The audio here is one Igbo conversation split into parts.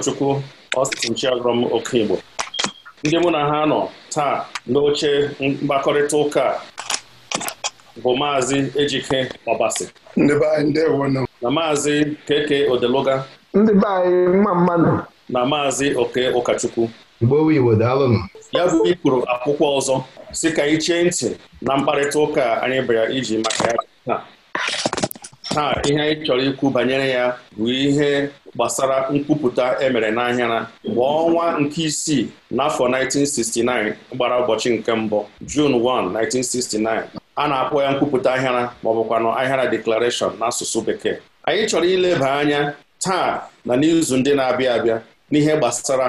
ụkọchukwu oke Okigbo ndị mụ na ha nọ taa n'oche mkpakọrịta ụka bụ maazị Ejike Ọbasi na maazị Keke Odeluga anyị mma na maazị Oke Ụkachukwu ya bụ ikpuru akwụkwọ ọzọ si ka chee ntị na mkparịta ụka anyị bịara iji maka ya taa ihe anyị chọrọ ikwu banyere ya bụ ihe gbasara nkwupụta emere n'ahịara mgbe ọnwa nke isii n'afọ 1969 gbara ụbọchị nke mbụ June 1, 1969 a na-akpọ ya nkwupụta ahịara maọbụkwanụ ọ ahịara declaration n'asụsụ bekee anyị chọrọ ileba anya taa na n'izu ndị na-abịa abịa n'ihe gbasara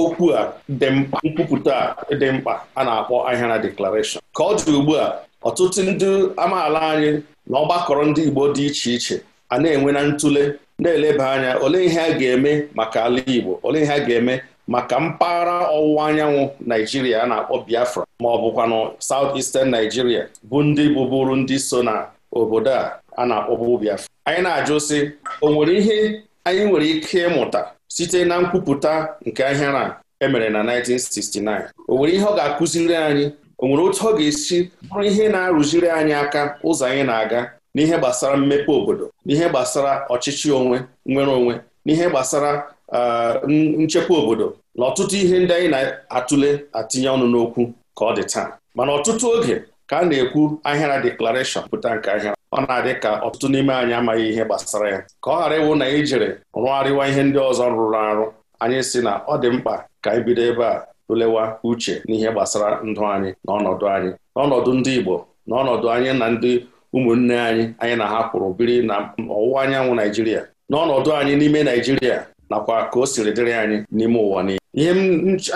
okwu a dị mkpa nkwupụta dị mkpa a na-akpọ ahịara declaration ka ọ dị ugbu a ọtụtụ ndị amaala anyị na ọgbakọrọ ndị Igbo dị iche iche a na-enwe na ntụle na-eleba anya olee ihe a ga-eme maka ala Igbo olee ihe a ga-eme maka mpaghara ọwụwa anyanwụ Naijiria a na-akpọ Biafra ma ọ bụkwanụ saut Eastern Naijiria bụ ndị bụbụrụ ndị so na obodo a a na-akpọbụ Biafra anyị na-ajụ sị o nwere ihe anyị nwere ike ịmụta site na nkwupụta nke ahịara a e emere na 1969 o nwere ihe ọ ga-akụziri anyị o nwere otu ọ ga-esi bụrụ ihe na-arụziri anyị aka ụzọ anyị na-aga n'ihe gbasara mmepe obodo n'ihe gbasara ọchịchị onwe nwere onwe n'ihe gbasara nchekwa obodo na ọtụtụ ihe ndị anyị na-atụle atinye ọnụ n'okwu ka ọ dị taa mana ọtụtụ oge ka a na-ekwu ahịara deklarashọn pụta nke ahịara ọ na-adị ka ọtụtụ n'ime anyị amaghị ihe gbasara ya ka ọ ghara ịwụ na ijere jere rụgharịwa ihe ndị ọzọ rụrụ arụ anyị si na ọ dị mkpa ka anyị bido ebe a tụlewa uche n'ihe gbasara ndụ anyị na ọnọdụ anyị n'ọnọdụ ndị Igbo n'ọnọdụ anyị na ndị ụmụnne anyị anyị na ha kwụrụ biri na ọwụwa anyanwụ Naijiria n'ọnọdụ anyị n'ime Naijiria nakwa ka o siri dịrị anyị n'ime ụwa niile ihe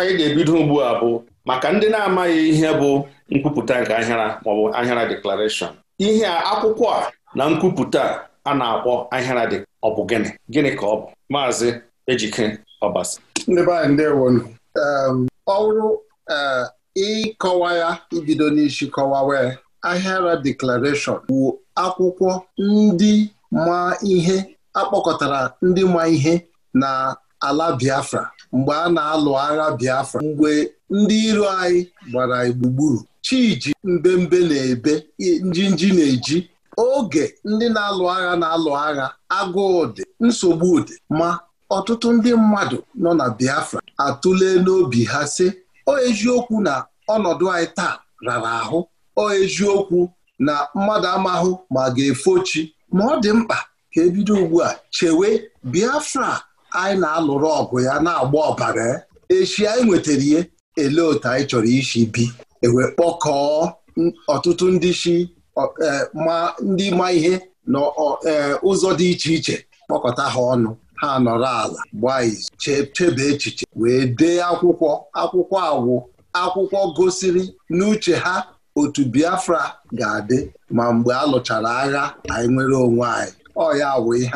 anyị ga-ebido ugbu a bụ maka ndị na-amaghị ihe bụ nkwupụta nke ahịara maọbụ ahịara deklarashọn ihe a akwụkwọ a na nkwupụta a na-akpọ ahịara dị ọ bụ gịnị gịnị ka ọ bụ maazị Ejike Ọbasa ọ bụrụ ịkọwa ya ibido n'isi kọwawa Ahịa Ahịara Declaration bụ akwụkwọ ndị ma ihe akpọkọtara ndị ma ihe na ala Biafra mgbe a na-alụ agha Biafra mgbe ndị iro anyị gbara gburugburu chiji mbembe na-ebe njinji na-eji oge ndị na-alụ agha na-alụ agha agụụ dị nsogbu dị ma ọtụtụ ndị mmadụ nọ na Biafra atụle n'obi ha sị o eziokwu na ọnọdụ anyị taa rara ahụ ọ eziokwu na mmadụ amahụ ma ga-efochi ma ọ dị mkpa ka ebido ugbu a chewe Biafra anyị na-alụrụ ọgụ ya na-agba ọbara echi anyị nwetara ihe ele otu anyị chọrọ isi bi ewe kpọkọọ ọtụtụ ndị si e, ma ndị ma ihe na e, ụzọ dị iche iche kpọkọta ha ọnụ ha nọrọ ala gbaa izu chebe echiche wee dee akwụkwọ akwụkwọ awụ akwụkwọ gosiri n'uche ha otu Biafra ga-adị ma mgbe a lụchara agha anyị nwere onwe anyị ọ ya ihe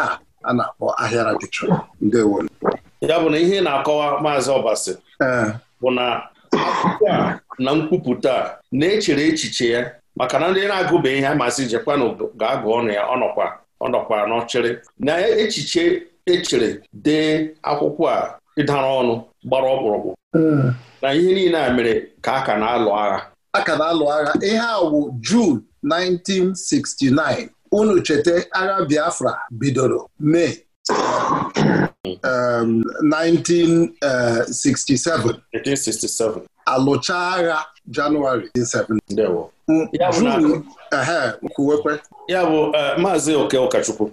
a na-akpọ ahịara dịchọ ndewo ya bụ na ihe na-akọwa maazị Ọbasi bụ na akwụkwọ na nkwupụta na-echere echiche ya maka na ndị na-agụba ihe amasị jekwana ga-agụ ọnụ ya ọnọkwa ọnọkwa n'ọchịrị na echiche echere dee akwụkwọ a ịdara ọnụ gbara ọkpụrụkpụ na ihe niile a mere ka a ka na-alụ agha a ka na-alụ agha ihe a wụ Jun 1969 unu cheta agha Biafra bidoro Mee 1967 um, 1967 alụcha agha Janụwarị 17 Jun ehe kwuwekwe ya bụ eh, maazị Oke Ụkachukwu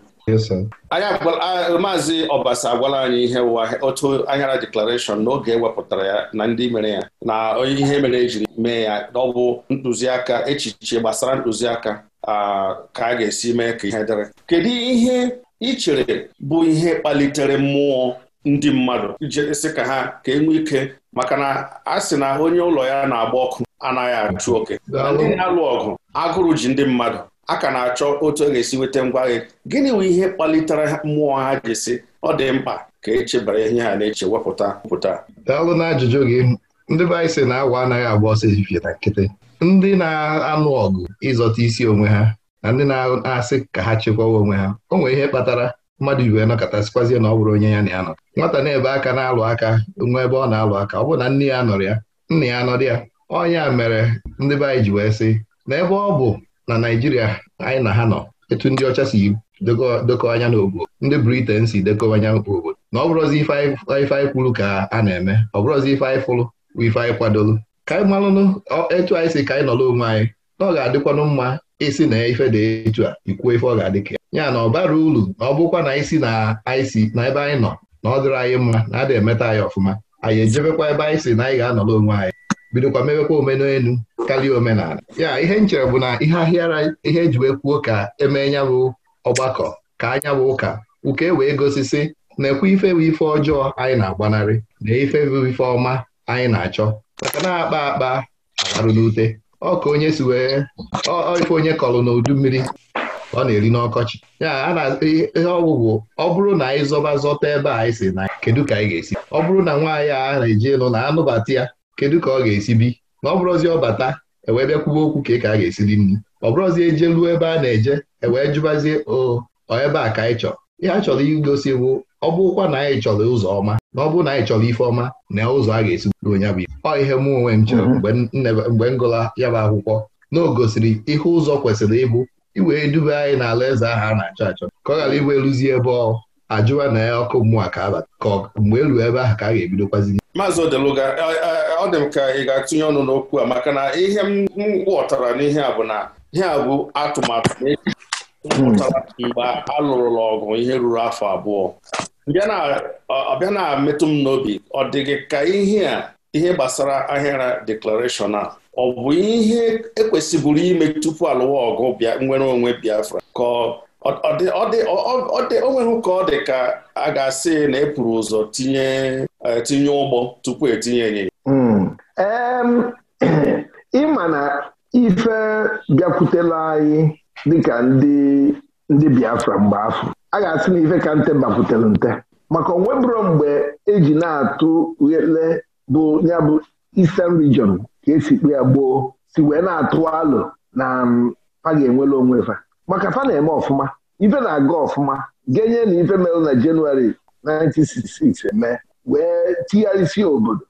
maazị Ọbasa agwala anyị ihe ụwa otu anyara deklarashọn n'oge ewepụtara ya na ndị mere ya na onye ihe mere e ji mee ya ọ bụ ntụziaka echiche gbasara ntụziaka ka a ga-esi mee ka ihe dịrị kedu ihe ị bụ ihe kpalitere mmụọ ndị mmadụ jesị ka ha ka enwe ike maka na a sị na onye ụlọ ya na-agba ọkụ anaghị achụ oke ndị na-alụ ọgụ agụrụ ji ndị mmadụ a ka na-achọ otu a e ga-esi nweta ngwa gị gịnị bụ ihe kpalitere mmụọ ha ji si ọ dị mkpa ka echebara ihe ha na-eche wepụta pụta daalụ na ajụjụ gị ndị be anyị sị na agwa anaghị agba ọsọ ezifie na nkịtị ndị na-anụ ọgụ ịzọta isi onwe ha na ndị na-asị ka ha chekwawa onwe ha o nwere ihe kpatara mmadụ iwe nọkọtasịkwazie na ọ bụrụ onye ya na ya nọ nwata na-ebe aka na-alụ aka onwe ebe ọ na-alụ aka ọ bụ na nne ya nọrọ ya nna ya anọrọ ya ọnya mere ndị be anyị ji wee sị na ebe ọ bụ na Naijiria anyị na ha nọ etu ndị ọcha si dekọ anya n'obodo ndị Briten si dekọ anya obodo na ọ bụrụzi ife anyị kwuru ka a na-eme ọ bụrụzi ife anyị fụrụ bụ ife anyị kwadolu ka anyị malụnụ etu anyị si ka anyị nọrọ onwe anyị na ọ ga-adịkwanụ mma isi na ife dị etu a ikwuo ife ọ ga-adị ka ya na ọ bara uru na ọ bụkwa na isi na anyị si na ebe anyị nọ na ọ dịrị anyị mma na adị emeta anyị ọfụma anyị ejebekwa ebe anyị si na anyị ga-anọrọ onwe anyị bidokwa mewekwa omenelu karịa omenala ya ihe m chere bụ na ihe ahịara ihe eji wee kwuo ka emee bụ ọgbakọ ka anya bụ ụka ụka ewee gosisi na-ekwe ife bụ ife ọjọọ anyị na-agbanarị na ife bụ ife ọma anyị na-achọ maka na-akpa akpa agharụ n'ute ọka onye si wee ife onye kọrọ n'udu mmiri ọ na-eri n'ọkọchị ya a na ihe ọgwụgwụ ọ bụrụ na anyị zọba zọta ebe a anyị si na kedu ka anyị ga-esi ọ bụrụ na nwaanyị a na-eji elu na anụbata ya kedu ka ọ ga-esi bi na ọ bụrụzi ọ bata ewee bịakwuba okwu ka ka a ga-esi dị mma. ọ bụrụzi eje ruo ebe a na-eje ewee jụbazie o ebe a ka anyị chọrọ ihe a chọrọ igosi bụ ọ na anyị chọrọ ụzọ ọma na ọ bụrụ na anyị chọrọ ife ọma na ụzọ a ga-esi buo ya bụ ọ ihe mụ onwe mhm. m mgbe m gụla ya bụ akwụkwọ na o gosiri ihe ụzọ kwesịrị ịbụ iwee duba anyị n'ala eze ahụ a na-achọ achọ ka ọ ghara ịbụ eluzie ebe ọ ajụwa na ya ọkụ mmụọ ka abata ka mgbe elu ebe ahụ ka a ga-ebidokwazi maazị Odeluga ọ dị m ka ị ga-atụnye ọnụ n'okwu a maka na ihe m ghọtara n'ihe a bụ na ihe a bụ atụmatụ e pụtara mgbe a ọgụ ihe ruru afọ abụọ ọbịa na-emetụ m n'obi ọ dịghị ka ihe a ihe gbasara ahịara deklarashọn a ọ bụ ihe ekwesịbụrụ ime tupu alụwa ọgụ bịa nwere onwe Biafra ka ọ dị onweghị ka ọ dị ka a ga-asị na e pụrụ ụzọ tinye e, tinye ụgbọ tupu etinye ịnyịnya hmm. ịma na ife bịakwutela anyị dịka ndị ndị Biafra mgbe afọ a ga-asị na ife ka nte bakwutere nte maka onwe onwebụro mgbe eji na-atụ nle bụ ya bụ Eastern Region ka esi kpe ya gboo si wee na-atụ alụ na ha ga enwe onwe fa maka fa na-eme ọfụma ife na-aga ọfụma genye na ife mere na jenụwarị 1966 eme wee tigharịsịa obodo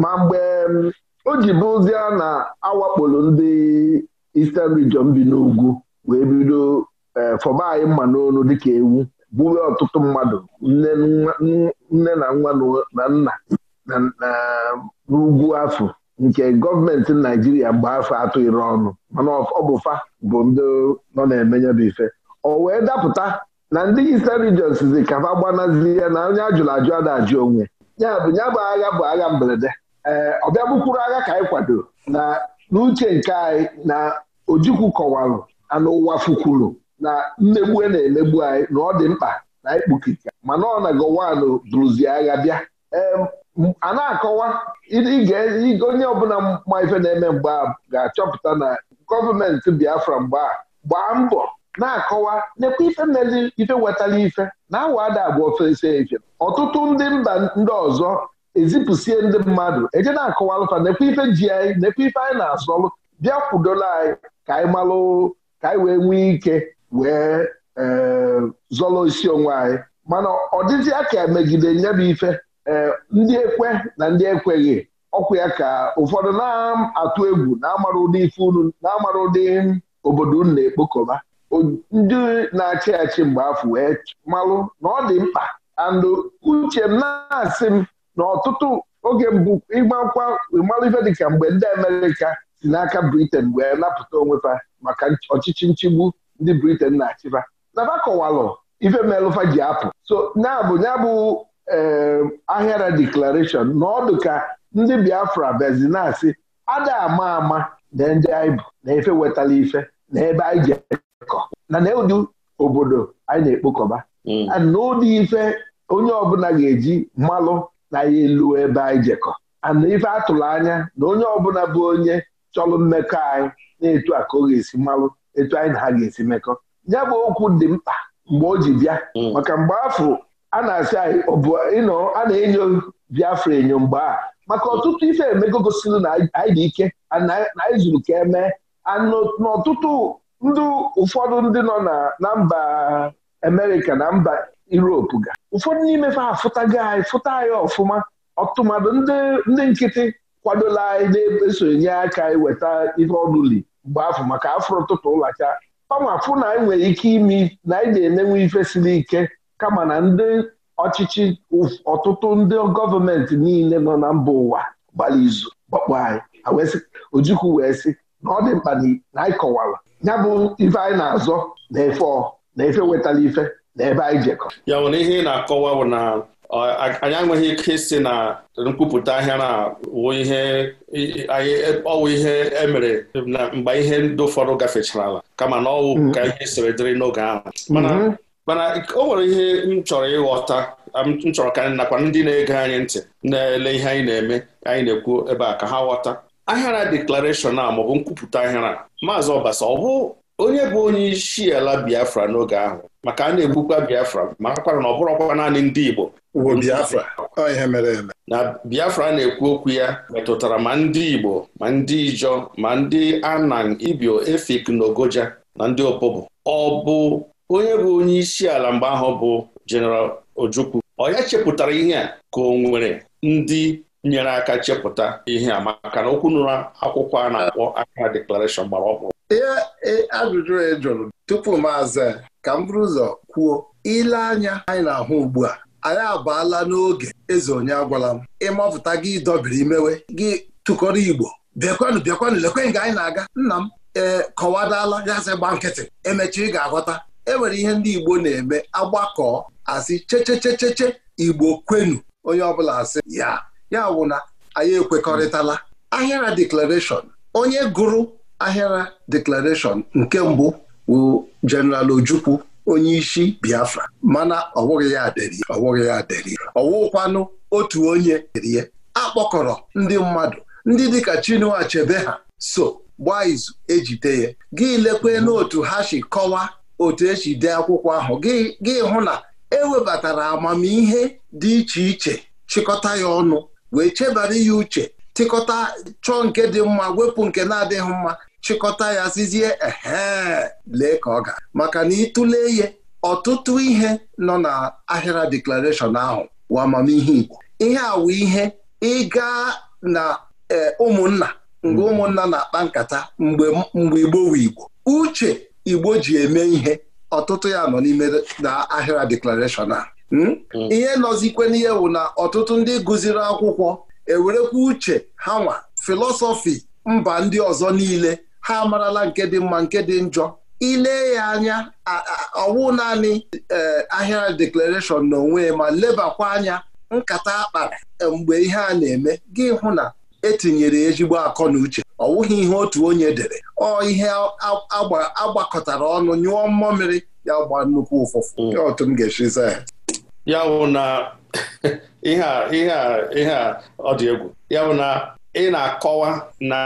ma mgbe um, o ji bụzie na awakporo ndị Eastern Region bi n'ugwu wee bido eh, fọba anyị mma n'onu dịka ewu bụrụ ọtụtụ mmadụ nne na nwa na nna n'ugwu afọ nke gọọmenti naijiria mgbe afọ atọ iri ọnụ mana ọbụfa bụ fa bụ ndị nọ na-emenye bụ ife o wee dapụta na ndị Eastern Region sizi ka fa gbanazie ya na onye ajụrụ ajụ ada ajụ onwe ya bụ ya bụ agha bụ agha mberede ee ọbịa bụkwuru agha ka anyị kwado na n'uche nke anyị na ojikwu kọwalụ anụ ụwa fukwuru na mmegbu e na-emegbu anyị na ọ dị mkpa na anyị mana ọ na gowanụ bụrụzie agha bịa a na-akọwa onye ọbụla ma ife na-eme mgbe a ga-achọpụta na gọọmenti Biafra mgbe a gbaa mbọ na-akọwa nekwa ife mmezi ife wetara ife na awada abụ ofesi ife ọtụtụ ndị mba ndị ọzọ ezipụsie ndị mmadụ eje na-akọwa alụfa nekwa ife ji anyị nekwa ife anyị na-azọlụ bịa kwudola anyị ka anyị malụ ka anyị wee nwee ike wee eh, zọlọ isi onwe anyị mana ọ dịzịa ka megide nyabụ ife Eh, ndị ekwe na ndị ekweghị ọkwa ya ka ụfọdụ na-atụ egwu na-amara ụdị ife unu na-amara ụdị obodo unu na-ekpokọba ndị na-achị achị mgbe afọ wee malụ na ọ dị mkpa andụ uche m na-asị m na ọtụtụ oge mbụ ịgbakwa ịmalụ ife dịka mgbe ndị Amerịka si n'aka Briten wee napụta onwefa maka ọchịchị nchigbu ndị Briten na-achịba nafa kọwalụ ife melụfa ji apụ so na-abụ bụ ee ehm, ahịara na n'ọdụ ka ndị Biafra bezinasi ada ama ama na ndị anyị bụ na efe wetala ife na ebe anyị ji ekọ na na ụdị obodo anyị na-ekpokọba hmm. na ụdị ife onye ọbụla ga-eji mmalụ na ya elu ebe anyị jekọ na ife atụrụ anya na onye ọbụla bụ onye chọrọ mmekọ anyị na-etu a ka ọ ga-esi mmalụ etu anyị na ha ga-esi mekọ ya bụ okwu dị mkpa mgbe o ji bịa hmm. maka mgbe afọ a na-asị anyị ịnọ a na-enyo Biafra enyo mgbe a maka ọtụtụ ife emego gosiri na anyị dị ike na anyị zuru ka emee n'ọtụtụ ndị ụfọdụ ndị nọ na mba Amerịka na mba Europe ga ụfọdụ n'ime fa afụtago anyị fụta anyị ọfụma ọtụmadụ ndị nkịtị kwadola anyị na-esonye e aka iweta ihe ọdụli mgbe afọ maka afọ ụtụtụ ụlacha pama fụ na anyị nwere ike ime na anyị na-emenwe ife siri ike kama na ndị ọchịchị ọtụtụ ndị gọọmenti niile nọ na mba ụwa gbara izu gbakpọ anyị ojukwu wee sị na ọ dị mkpa na anyị kọwara ya bụ ife anyị na-azọ na efe ọ na efe wetara ife na ebe anyị jekọ ya nwere ihe ị na-akọwa bụ na anyị enweghị ike isi na nkwupụta ahịa na ọwụ ihe emere e na mgbe ihe ndị ụfọdụ gafechara ala kama na ọwụ mm-hmm. ka ihe siri dịrị n'oge ahụ mm-hmm. mana o nwere ihe m chọrọ ịghọta m chọrọ ka nakwa ndị na-ege anyị ntị na-ele ihe anyị na-eme anyị na-ekwu ebe a ka ha ghọta ahịara deklarashọn a maọbụ nkwupụta ahịara maazị ọbasa ọ bụ onye bụ onye isi ala biafra n'oge ahụ maka a na-egbukwa biafra ma akwara na ọ bụrụkwa naanị ndị igbo biafra mere eme. na biafra na-ekwu okwu ya metụtara ma ndị igbo ma ndị ijọ ma ndị anang ibio efik na ogoja na ndị opobo ọ bụ onye bụ onye isi ala mgbe ahụ bụ jeneral Ojukwu ọ ya chepụtara ihe a ka o nwere ndị nyere aka chepụta ihe a maka na okwu nụrụ akwụkwọ a na-akpọ Accra deklarashọn gbara ọkpụrụ ihe e, ajụjụ e jụrụ tupu m ka m bụrụ ụzọ kwuo ile anya anyị na-ahụ ugbu a anyị abaala n'oge eze onye agwala m ịmapụta gị dọbiri imewe gị tụkọrọ igbo bịakwanụ bịakwanụ lekwe nga anyị na-aga nna m ee kọwadala ya sị gba nkịtị emechi ị ga-aghọta enwere ihe ndị Igbo na-eme agbakọ asị chechechecheche Igbo kwenu onye ọbụla asị ya ya wụ na anyị ekwekọrịtala ahịara deklarashọn onye gụrụ ahịara deklarashọn nke mbụ wụ Jeneral Ojukwu onye isi Biafra mana ọ wụghị ya deri ọ ya ọ wụkwanụ otu onye rie akpọkọrọ ndị mmadụ ndị dịka Chinua Achebe ha so gbaa izu ejide ya gị lekwe n'otu ha si kọwaa otu esi dee akwụkwọ ahụ gị hụ na ewebatara amamihe dị iche iche chịkọta ya ọnụ wee chebara ya uche tịkọta chọọ nke dị mma wepụ nke na-adịghị mma chịkọta ya sizie ehe lee ka ọ ga maka na ịtụle ihe ọtụtụ ihe nọ na ahịra deklarashọn ahụ wa amamihe Igbo ihe awụ ihe ịga na eh, ụmụnna mgbe mm-hmm. ụmụnna na-akpa nkata mgbe Igbo wu Igbo uche Igbo ji eme ihe ọtụtụ ya nọ n'ime na ahịra deklarashọn a hmm? Hmm. ihe nọzikwe n'ihe bụ na ọtụtụ ndị gụziri akwụkwọ ewerekwa uche ha nwa filọsọfi mba ndị ọzọ niile ha amarala nke dị mma nke dị njọ ile ya anya ọwụ naanị e, ahịa deklarashọn onwe ma lebakwa anya nkata akpara e, mgbe ihe a na-eme gị hụ na etinyere ezigbo akọ na uche ọ wụghị ihe otu onye dere ọ ihe agbakọtara ọnụ nyụọ mmamịrị ya gba nnukwu ụfụfụ ya mm. otu m ga-esi za ya ya bụ na ihe a ọ dị egwu ya bụ na ị na-akọwa na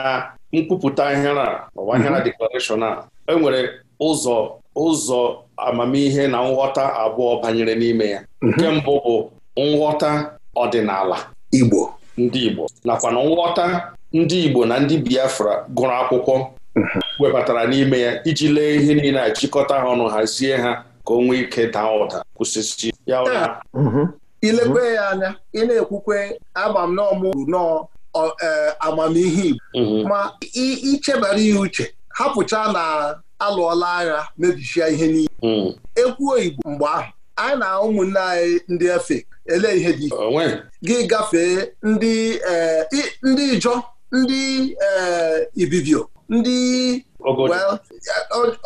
nkwupụta ihe a ọwa ihe na deklarashọn a mm-hmm. enwere e ụzọ ụzọ amamihe na nghọta abụọ banyere n'ime ya mm-hmm. nke mbụ bụ nghọta ọdịnala Igbo ndị Igbo nakwa na nghọta ndị Igbo na ndị Biafra gụrụ akwụkwọ webatara n'ime ya iji lee ihe niile a chịkọta ha ọnụ hazie ha ka o nwee ike daa ụda kwụsịsị ya ụra mhm. ilekwe ya anya ị na-ekwukwe amam n'ọmụ nnọọ e, amamihe Igbo mhm. ma ichebara ihe uche hapụcha na alụọla agha mebichia ihe niile mhm. ekwuo Igbo mgbe ahụ anyị na ụmụnne anyị ndị efe ele ihe dị gị gafee ndị eh, ndị ijọ ndị eh, ibibio ndị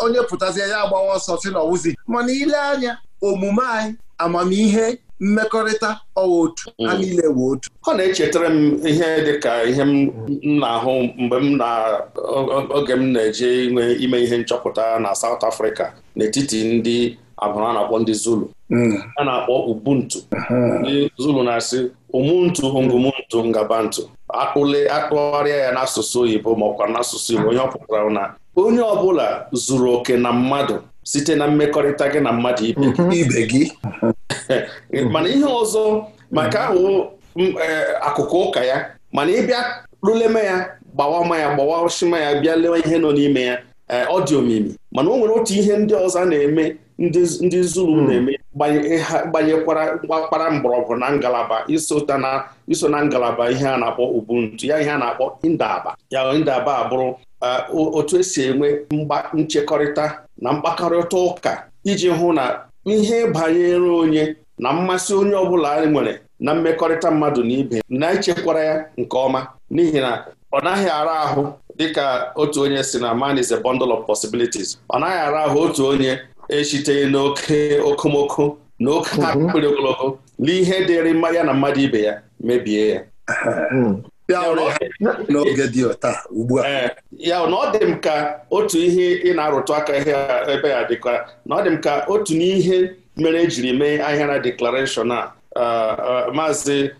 onye pụtazie ya agbawa ọsọ si na ọwụzi mana ile anya omume anyị amamihe mmekọrịta ọwa otu ha mm. niile wee otu ọ na-echetara m ihe dị ka ihe m na-ahụ mgbe m na oge m na-eje ime ihe nchọpụta na South Africa n'etiti ndị abụrụ a na-akpọ ndị Zulu a na-akpọ ubuntu ndị Zulu na-asị umuntu ngumuntu ngabantu akpụle akpụgharịa ya n'asụsụ oyibo maọkwa n'asụsụ Igbo onye ọ na onye ọbụla zuru oke na mmadụ site na mmekọrịta gị na mmadụ ibe gị mhm. mana ihe ọzọ maka ahụ e, akụkụ ụka ya mana ịbịa luleme ya gbawa ma ya gbawa shima ya bịa lewe ihe nọ n'ime ya Eh, ọ dị omimi mana o nwere otu ihe ndị ọzọ na-eme ndị Zulu hmm. na-eme gbanyekwara gbakpara mgbọrọgwụ na ngalaba iso na ngalaba ihe a na-akpọ ubuntu ya ihe a na-akpọ indaba ya ndaba abụrụ eh, otu esi enwe mgba nchekọrịta na mkpakọrịta ụka iji hụ na ihe banyere onye na mmasị onye ọbụla nwere na mmekọrịta mmadụ na ibe na-echekwara ya nke ọma n'ihi na ọ naghị ara ahụ dịka otu onye si na man is a bundle of possibilities ọ naghị ara ahụ otu onye eshite n'oke okomoko na oke akpịrị mhm. ogologo na ihe dịrị mmanya na mmadụ ibe ya mebie ya mhm. ya na eh, ọ dị m ka otu ihe ị na-arụtụ aka ebe ya dịka na ọ dị m ka otu n'ihe mere ejiri mee na deklarashọn a eh, eh, maazị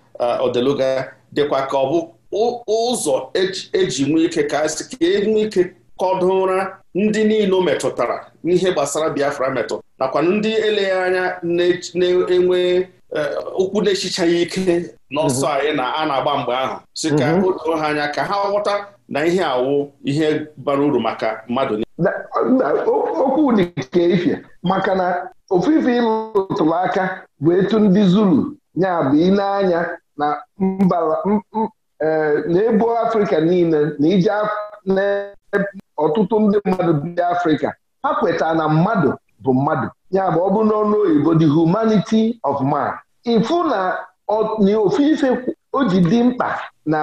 odeluga dịkwa ka ọ bụ ụzọ eji nwee ike ka sị ka e ike kọdụ ụra ndị niile metụtara n'ihe gbasara Biafra metụ nakwa ndị eleghị anya na-enwe ụkwụ e, na-echichaghị ike n'ọsọ mhm. anyị na a na-agba mgbe ahụ si ka mhm. o doo ha anya ka ha ghọta na ihe awụ ihe bara uru maka mmadụ okwu dị ife maka na ofufe aka bụ etu ndị Zulu ya bụ ile na na-ebu afrịka niile na ije ọtụtụ ndị mmadụ ndị afrịka ha kwetara na mmadụ bụ mmadụ ya bụ ọ bụ n'ọnụ oyibo the humanity of man ifu na ofufe o ji dị mkpa na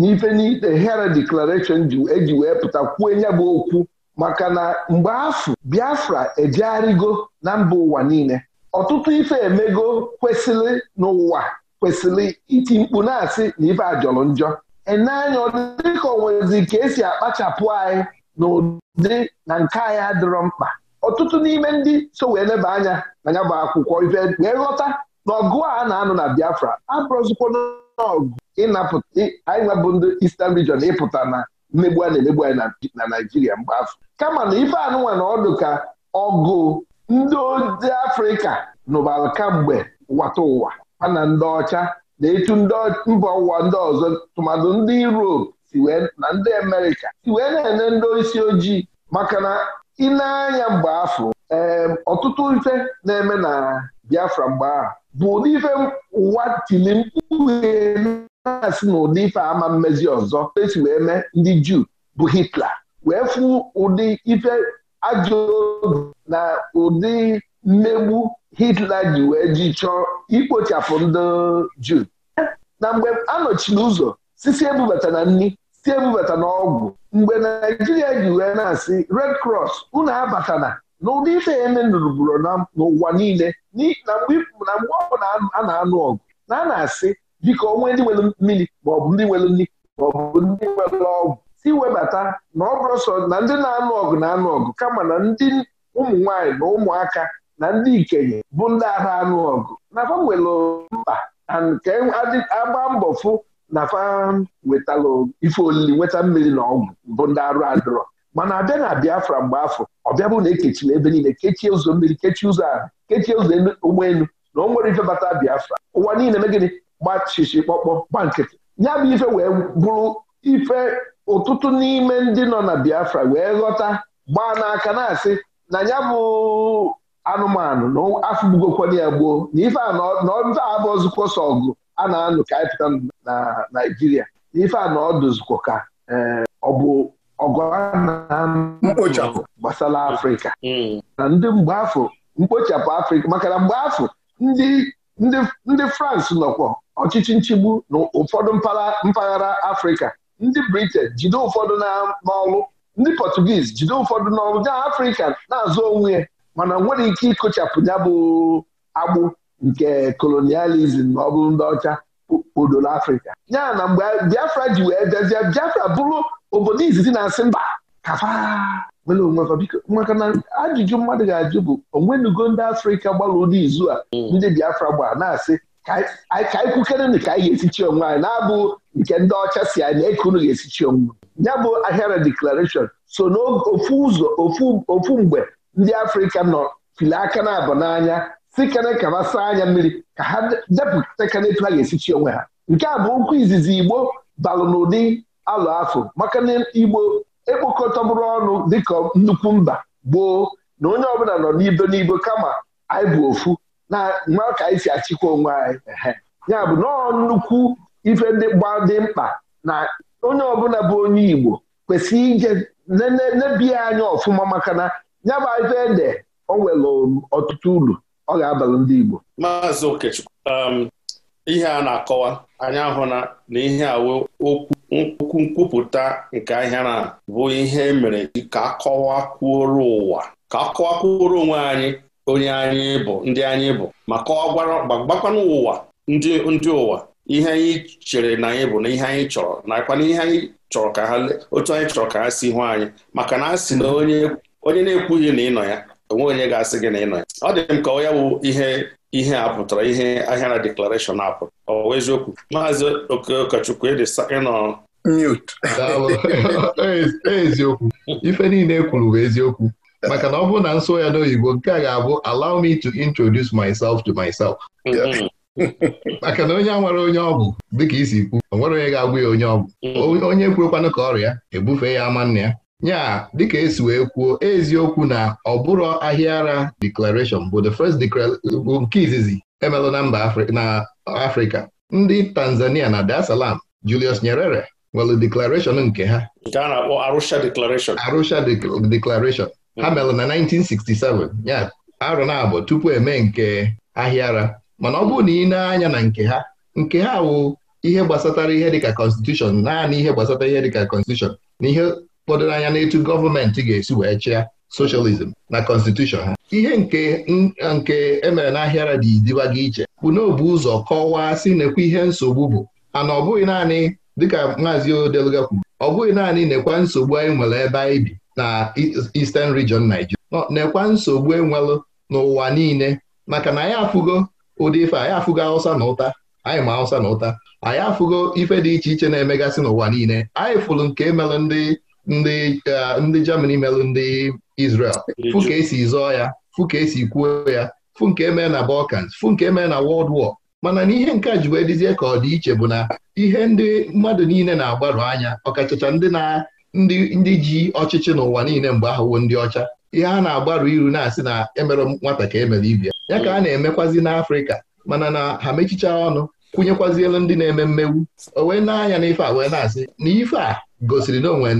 n'ife n'ite Hera Declaration eji wee pụta kwuo ya bụ okwu maka na mgbe afọ Biafra ejegharịgo na mba ụwa niile ọtụtụ ife emego kwesịrị n'ụwa kwesịrị iti mkpu na-asị na ife a jọrọ njọ eneanya ọ dịka onwezi ka esi akpachapụ anyị na ụdị na nke anyị adịrọ mkpa ọtụtụ n'ime ndị so wee leba anya na ya bụ akwụkwọ ife wee ghọta na ọgụ a na-anụ na Biafra abụrụzikwa n'ọgụ anyị nwebụ ndị Eastern Region ịpụta na mmegbu a na-emegbu anyị na Naijiria mgbe afọ kama na ife anụnwa na ọdụ ka ọgụ ndị ojii Afrịka nụbara kamgbe wata ụwa ha na ndị ọcha na etu mba ụwa ndị ọzọ tụmadụ ndị Europe si na ndị Amerịka si wee na-ene ndị isi ojii maka na ị na-anya mgbe afọ ọtụtụ ife na-eme na Biafra mgbe ahụ bụ ụdị ife ụwa tili mkpu na na ụdị ife ama mmezi ọzọ esi wee mee ndị Juu bụ Hitler wee fụ ụdị ife ajọ na ụdị mmegbu Hitler ji wee ji chọọ ikpochapụ ndị Juu na mgbe anọchila ụzọ sisi ebubata na nri si ebubata na ọgwụ mgbe Naijiria ji wee na-asị Red Cross unu abatana n'ụdị ife emenụrụbụrụ n'ụwa niile na mgbe ọ na a na-anụ ọgụ na a na-asị biko onwe ndị nwere mmiri maọbụ ndị nwere nri maọbụ ndị nwere ọgwụ si webata na ọ bụrụ sọ na ndị na-anụ ọgụ na-anụ ọgụ kama na ndị ụmụ nwaanyị na ụmụaka na ndị ikenye bụ ndị agha anụ ọgụ na fa nwere mkpa nke agba mbọ fụ na fa ife olili nweta mmiri na ọgwụ bụ ndị arụ adịrọ mana abịa na Biafra mgbe afọ ọbịa bụ na ekechiri ebe niile kechie ụzọ mmiri kechie ụzọ ala kechie ụzọ ụgbọelu na o nwere ife bata Biafra ụwa niile megịnị gbachichi kpọkpọ gba nkịtị ya bụ ife wee bụrụ ife ụtụtụ n'ime ndị nọ na Biafra wee ghọta gbaa n'aka na-asị na ya bụ anụmanụ na afụgbugokwana ya gboo na ife a na ọdụ abụ ọzụkọ sọ ọgụ a na-anụ ka anyị pụta na Naịjirịa na ife a na ka eh, ọ bụ ọgụ a na-anụ gbasara Afrịka hmm. na ndị mgbe afọ mkpochapụ Afrịka maka na mgbe afọ ndị France nọkwa ọchịchị nchigbu na ụfọdụ mpaghara Afrịka ndị Britain jide ụfọdụ n'ọrụ ndị Portuguese jide ụfọdụ n'ọrụ ndị Afrịka na-azụ onwe ya mana nwere ike ịkụchapụ ya bụ agbụ nke kolonializm ma ọ bụrụ ndị ọcha odolo afrịka ya na mgbe biafra ji wee bịazie biafra bụrụ obodo izizi na-asị mba maka na ajụjụ mmadụ ga-ajụ bụ onwenugo ndị afrịka gbara ụdị izu a mm. ndị biafra gbaa na-asị ka anyị kwukereni ka anyị ga-esichi onwe anyị na-abụ nke ndị ọcha si anyị na e eke unu ga-esichi onwe ya bụ ahịara deklarashọn so n'ofu ụzọ ofu mgbe ndị afrịka nọ fili aka na abụ n'anya si kene ka saa anya mmiri ka ha depụta kene etu ha ga-esichi onwe ha nke a bụ okwu izizi igbo balụ n'ụdị alụ afọ maka na igbo ekpokọtọbụrụ ọnụ dịka nnukwu mba gboo na onye ọbụla nọ n'ibo n'ibo kama anyị bụ ofu na nwa ka anyị si achịkwa onwe anyị ya bụ nọọ nnukwu ife ndị gba dị mkpa na onye ọbụla bụ onye igbo kwesịrị ije nebiya anya ọfụma maka na ya bụ ife ede o nwere ọtụtụ uru ọ ga-abara ndị Igbo maazị Okechukwu um, ihe a na-akọwa anyị ahụ na ihe awe okwu nkwupụta nke ahịa na bụ ihe e mere ka akọwakwuoro ụwa ka akọwakwuoro onwe anyị onye anyị bụ ndị anyị bụ ma gbakwanụ ụwa ndị ụwa ihe anyị chere na anyị bụ na ihe anyị chọrọ nakwana ihe anyị chọrọ ka ha otu anyị chọrọ ka ha si hụ anyị maka na a sị na onye onye na-ekwughị na ịnọ ya onwe onye ga-asị gị na ịnọ ya ọ dị m ka ọ ya bụ ihe ihe a pụtara ihe na deklarashọn a pụtara ọ wee eziokwu maazị okọchukwu ịnọ mute e, eziokwu ife niile ekwuru bụ eziokwu maka na ọ bụrụ na nso ya n'oyibo nke a ga-abụ allow me to introduce myself to myself mm-hmm. maka na onye a nwere onye ọgwụ dịka isi kwu o nwere onye ga-agwụ ya onye bụ. Mm-hmm. onye kwurekwanụ ka ọrịa ebufe ya ama nna ya ya dịka esi wee kwuo eziokwu na ọ bụrụ ahịa ara declaration bụ the first nke izizi emelụ na mba na Afrịka ndị Tanzania na Dar es Salaam Julius Nyerere nwere declaration nke ha nke a na-akpọ Arusha declaration Arusha ha melụ na 1967 ya arụ na-abụ tupu eme nke ahịa ara mana ọ bụrụ na ị na-anya na nke ha nke ha wụ ihe gbasatara ihe dịka constitution naanị ihe gbasatara ihe dịka constitution na ihe fọdụrụ anya n'etu gọọmenti ga-esi wee chịa socialism na constitution ha ihe nke nke emere n'ahịara dị idibaga iche bụ n'obu ụzọ kọwaa si nekwa ihe nsogbu bụ ana ọ bụghị naanị dịka maazị Odeluga kwuru ọ bụghị naanị nekwa nsogbu anyị nwere ebe anyị bi na Eastern Region naijiria. nekwa nsogbu enwelụ n'ụwa niile maka na anyị afụgo ụdị ife anyị afụgo awụsa na ụta anyị ma awụsa na ụta anyị afụgo ife dị iche iche na-emegasị n'ụwa niile anyị fụrụ nke e mere ndị Uh, ndị Germany melụ ndị Israel fụ ka esi zọọ ya fụ ka esi kwuo ya Fu nke emee na Balkans Fu nke emee na wọld War mana na ihe nke a ji wee dịzie ka ọ dị iche bụ na ihe ndị mmadụ niile na-agbaru anya ọkachacha ndị na ndị ji ọchịchị n'ụwa niile mgbe ahụwo ndị ọcha ihe a na-agbaru iru na-asị na emere nwata ka emere ibia ya ka a na-emekwazi n'Afrịka mana na ha mechicha ọnụ kwụnyekwazielu ndị na-eme mmegbu o wee na-anya n'ife a wee na-asị na ife a gosiri na onwe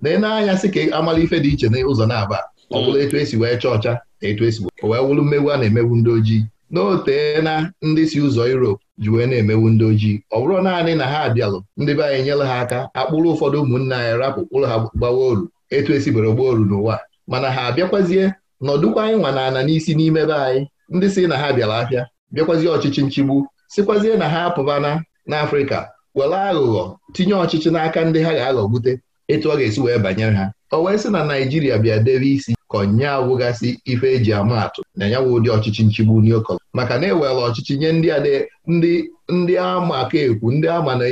na n'anya sị ka amala ife dị iche n'ụzọ na-aba ọ mm. bụla etu esi wee chọọ ọcha na etu esi wee wụrụ mmegbu a na-emegbu ndị ojii n'ote na ndị si ụzọ Europe ji wee na-emewu ndị ojii ọ bụrụ naanị na ha abịalụ ndị be anyị nyere ha aka akpụrụ ụfọdụ ụmụnne anyị rapụ kpụrụ ha gbawa oru etu esi bere gbaa oru n'ụwa mana ha abịakwazie nọdụkwa anyị nwa ana n'isi n'ime be anyị ndị si na ha bịara afịa bịakwazie ọchịchị nchigbu sikwazie na ha apụbana n'Afrịka were aghụghọ tinye ọchịchị n'aka ndị ha ga-aghọgbute etu ọ ga-esi wee banyere ha o wee sị na Naijiria bịa debe isi ka ọnya awụgasị ife eji ama atụ na nyanwụ ụdị ọchịchị nchigbu n'okọlọ maka na ewere ọchịchị nye ndị ndị ama aka ekwu ndị ama na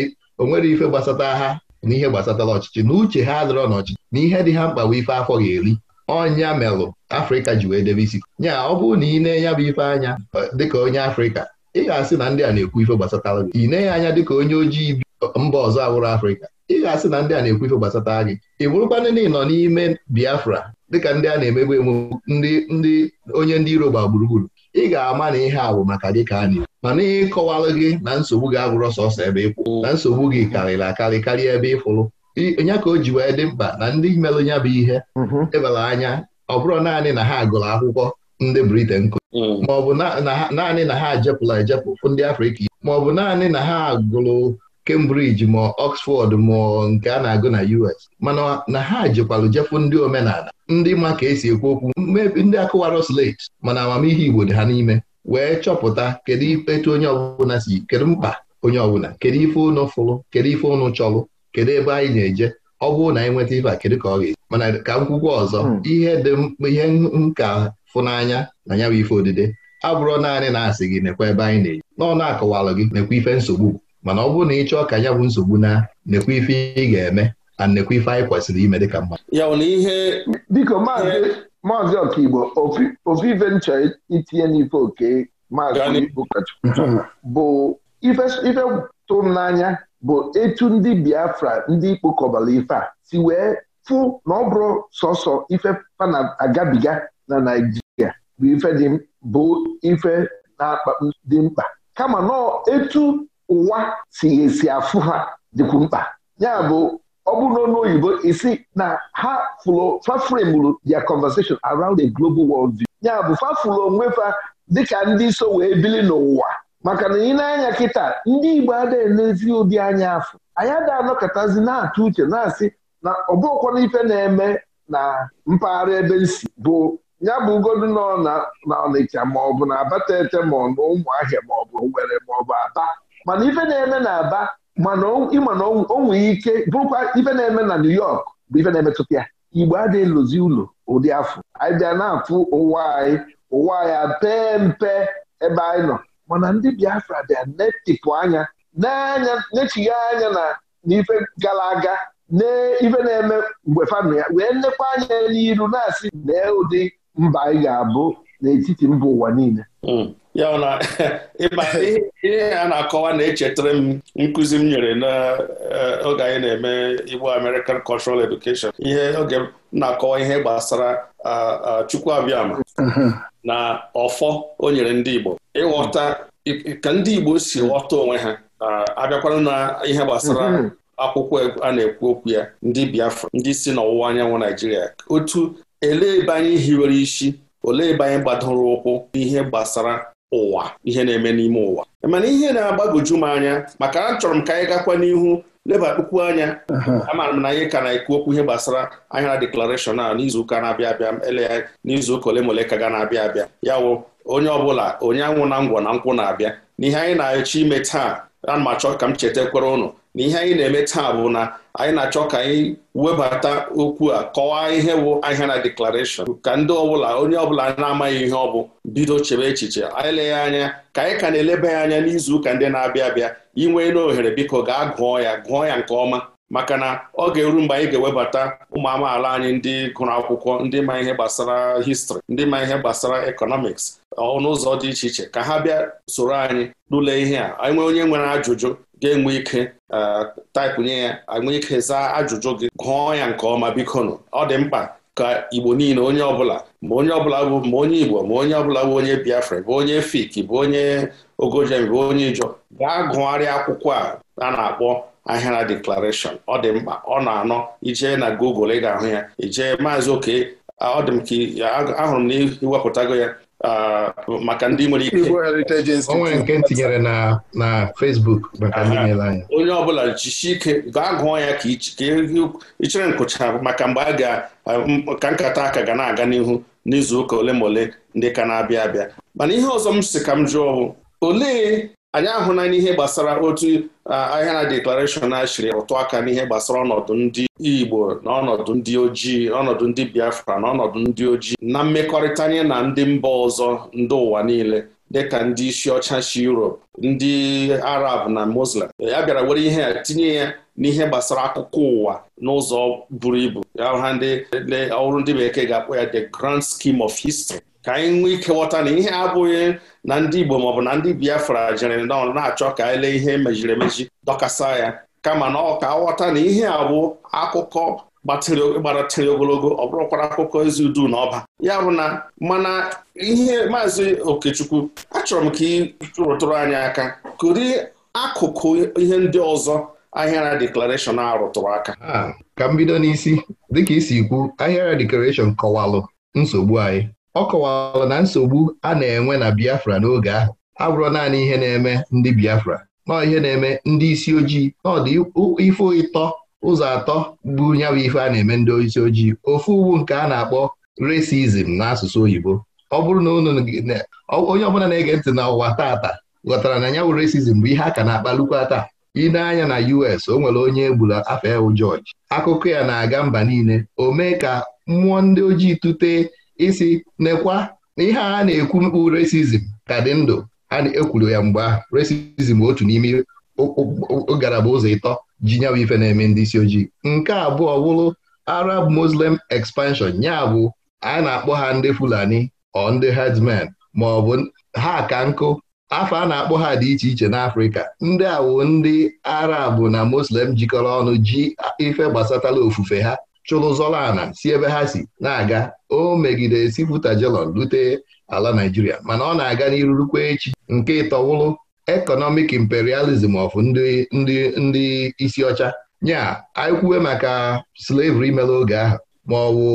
onwere ife gbasata ha na ihe gbasatara ọchịchị na uche ha adịrọ n'ọchịchị na ihe dị ha mkpa bụ ife afọ ga-eri ọnya melụ Afrịka ji wee debe isi nya ọ bụrụ na ị na-enya bụ ife anya dịka onye Afrịka ị ga-asị na ndị a na-ekwu ife gbasatara gị ị neghị anya dịka onye ojii bi mba ọzọ awụrụ Afrịka ị ga-asị na ndị a na-ekwu ife gbasatara gị ị bụrụkwanụ na ị nọ n'ime Biafra dịka ndị a na-emegbu emegbu ndị ndị onye ndị iro gba gburugburu ị ga-ama na ihe a bụ maka gị ka a na ma mana ihe ịkọwalụ gị na nsogbu gị agwụrọ sọsọ ebe ịkwụ na nsogbu gị karịrị akarị karịa ebe ịfụrụ nya ka o ji wee dị mkpa na ndị merụ ya bụ ihe mm-hmm. ebara anya ọ bụrụ naanị na ha gụrụ akwụkwọ ndị Briten Mm. bụ naanị na ha ejepụla ejepụ ndị Afrịka bụ naanị na ha gụrụ Cambridge ma Ọksfọd ma nke a na-agụ na US mana na ha jekwalụ jepụ ndị omenala ndị ma ka esi ekwu okwu mmebi ndị akụwara slate mana amamihe Igbo dị ha n'ime wee chọpụta kedu etu onye ọbụla si kedu mkpa onye ọbụla kedu ife ụnụ fụrụ kedu ife ụnụ chọrụ kedu ebe anyị na-eje ọ bụrụ na anyị nweta ife a kedu ka ọ ga-eji mana ka m ọzọ mm. ihe dị ihe nka fụ n'anya na ya bụ ife odide abụrụ naanị na-asị gị nekwa ebe anyị na-eji n'ọnụ akọwalụ gị nekwa ife nsogbu mana ọ bụrụ na ị chọọ ka ya bụ nsogbu na nekwa ife ị ga-eme na nekwa ife anyị kwesịrị ime dịka mmadụ ya bụ na ihe biko maazị ọkaigbo ofu ife nchọ itinye n'ife oke maazị bụ ife tụrụ m n'anya bụ etu ndị Biafra ndị ikpokọbara ife a si wee fụ na ọ bụrụ sọsọ ife pana agabiga na Naijiria bụ ife dị bụ ife na-akpa dị mkpa kama nọọ etu ụwa si esi afụ ha dịkwu mkpa ya bụ ọ bụ n'ọnụ oyibo isi na ha fụrụ fafremuru their conversation around a global world view ya bụ fafụrụ onwe fa dịka ndị so wee bili n'ụwa maka na ị na-anya kịta ndị Igbo adịghị n'ezi ụdị anya afọ anyị ada anọkọtazi na-atụ uche na-asị na ọ bụrụkwana ife na-eme na mpaghara ebe nsi bụ ya bụ ugodu nọ na Ọnịcha ma ọ bụ na abatete ma ọ ụmụahịa ma ọ bụ ma ọ bụ Aba mana ife na-eme na Aba mana ịma na o ike bụrụkwa ife na-eme na New York bụ ife na-emetụta ya Igbo adịghị lụzi ụlọ ụdị afọ anyị bịa na-afụ ụwa anyị ụwa anyị pee mpe ebe anyị nọ mana ndị Biafra bịa netipụ anya n'anya nechigha anya na n'ife gara aga n'ife na-eme mgbe famili ya wee nnekwa anya n'iru na-asị lee ụdị mba anyị ga-abụ n'etiti mba ụwa niile hmm. ya na ihe a na-akọwa na-echetara m nkụzi m nyere n'oge eh, anyị na-eme Igbo American Cultural Education ihe oge na-akọwa ihe gbasara Chukwu Abịama uh-huh. na ọfọ o nyere ndị Igbo ịghọta ka ndị Igbo si ghọta onwe ha abịakwara na ihe gbasara uh-huh. akwụkwọ a na-ekwu okwu ya ndị Biafra ndị si n'ọwụwa anyanwụ Naijiria otu elee ebe anyị hiwere isi olee ebe anyị gbadoro ụkwụ n'ihe gbasara ụwa ihe na-eme n'ime ụwa e mana ihe na-agbagoju m anya maka achọrọ m ka anyị gakwa n'ihu lebakpukwu anya amaara m na anyị ka na-ekwu okwu ihe gbasara ahịara deklarashọn a n'izuụka na-abịa abịa ele n'izuụka ole mole ole ka ga na-abịa abịa ya wụ onye ọbụla onye anwụ na ngwọ na nkwụ na-abịa n'ihe anyị na-achọ ime taa na m achọ ka m cheta kwere ụnụ na ihe anyị na-eme taa bụ na anyị na-achọ ka anyị webata okwu a kọwaa ihe bụ ahịa na deklarashọn ka ndị ọbụla onye ọbụla na-amaghị ihe ọ bụ bido chebe echiche anyị leghị anya ka anyị ka na-eleba ya anya n'izu ụka ndị na-abịa abịa inwe n'ohere biko gaa gụọ ya gụọ ya nke ọma maka na ọ ga-eru mgbe anyị ga-ewebata ụmụ amaala anyị ndị gụrụ akwụkwọ ndị ma ihe gbasara histrị ndị ma ihe gbasara ekọnọmiks ọnụụzọ dị iche iche ka ha bịa soro anyị tụlee ihe a anyị nwee onye nwere ajụjụ ga-enwe ike taịpụnye ya enwe ike zaa ajụjụ gị gụọ ya nke ọma biko nụ ọ dị mkpa ka Igbo niile onye ọbụla ma onye ọbụla bụ ma onye Igbo ma onye ọbụla bụ onye Biafra bụ onye fiki bụ onye Ogojem bụ onye Ijọ gaa gụgharịa akwụkwọ a a na-akpọ Ahịara Declaration ọ dị mkpa ọ na-anọ ijee na Google ị ga-ahụ ya ijee maazị oke ọ dị m ka ahụrụ m na iwepụtago ya maka ndị nwere ike onwe nke tinyere na na Facebook maka ndị nyere anya onye ọbụla jisie ike gaa gụọ ya ka ichere nkụcha maka mgbe a ga ka nkata aka ga na-aga n'ihu n'izuụka ole ma ole ndị ka na-abịa abịa mana ihe ọzọ m si ka m jụọ bụ olee anyị ahụla ihe gbasara otu Ah, ahịa na deklarashọn achịrị rụtụ aka n'ihe gbasara ọnọdụ ndị Igbo na ọnọdụ ndị ojii ọnọdụ ndị Biafra na ọnọdụ ndị ojii na mmekọrịta anya na ndị mba ọzọ ndị ụwa niile dịka ndị isi ọcha si Europe ndị Arab na Muslim ya bịara were ihe ya tinye ya n'ihe gbasara akụkọ ụwa n'ụzọ buru ibu ya ha ndị ọrụ ndị bekee ga-akpọ ya the grand scheme of history ka anyị nwee ike ghọta na ihe abụghị na ndị Igbo maọbụ na ndị Biafra jere na-achọ ka anyị lee ihe emejiri emeji dọkasa ya kama na ọ ka ghọta na ihe abụ bụ akụkọ gbatịrị ogologo ọ bụrụkwara akụkọ ezi udu na ọba ya bụ na mana ihe maazị Okechukwu achọrọ m ka ị rụtụrụ anyị aka kụri akụkụ ihe ndị ọzọ ahịara deklarashọn a rụtụrụ aka ah, ka m bido n'isi dịka isi kwu ahịara deklarashọn kọwalụ nsogbu anyị ọ kọwara na nsogbu a na-enwe na Biafra n'oge ahụ abụrụ naanị ihe na-eme ndị Biafra nọọ ihe na-eme ndị isi ojii ọdị ife ịtọ ụzọ atọ bụ ya bụ ife a na-eme ndị isi ojii ofu uwu nke a na-akpọ na n'asụsụ oyibo ọ bụrụ na onye ọbụla na-ege ntị na ụwa tata ghọtara na ya resizm bụ ihe a ka na-akpalukwa taa ine na-anya na US o nwere onye egburu afọ ewu George akụkọ ya na-aga mba niile o mee ka mmụọ ndị ojii tụtee isi nekwa na ihe a na-ekwu mkpu resizm ka dị ndụ a na-ekwuru ya mgbe ahụ resizm otu n'ime ngalaba ụzọ ịtọ ji nyawa ife na-eme ndị isi ojii nke abụọ bụrụ Arab Muslim expansion ya bụ a na-akpọ ha ndị Fulani ọ ndị hedmen ma ọ bụ ha ka nkụ afọ a na-akpọ ha dị iche iche n'Afrịka ndị awụ ndị Arab na Muslim jikọrọ ọnụ ji ife gbasatala ofufe ha chụrụ zọrọ ala si ebe ha si na-aga o megide Sifụta jelon rute ala Naijiria mana ọ na-aga n'irurukwa echi nke ịtọwụrụ ekọnọmik imperializm of ndị isi ọcha nya aikwuwe maka slavery mere oge ahụ ma ọ wụ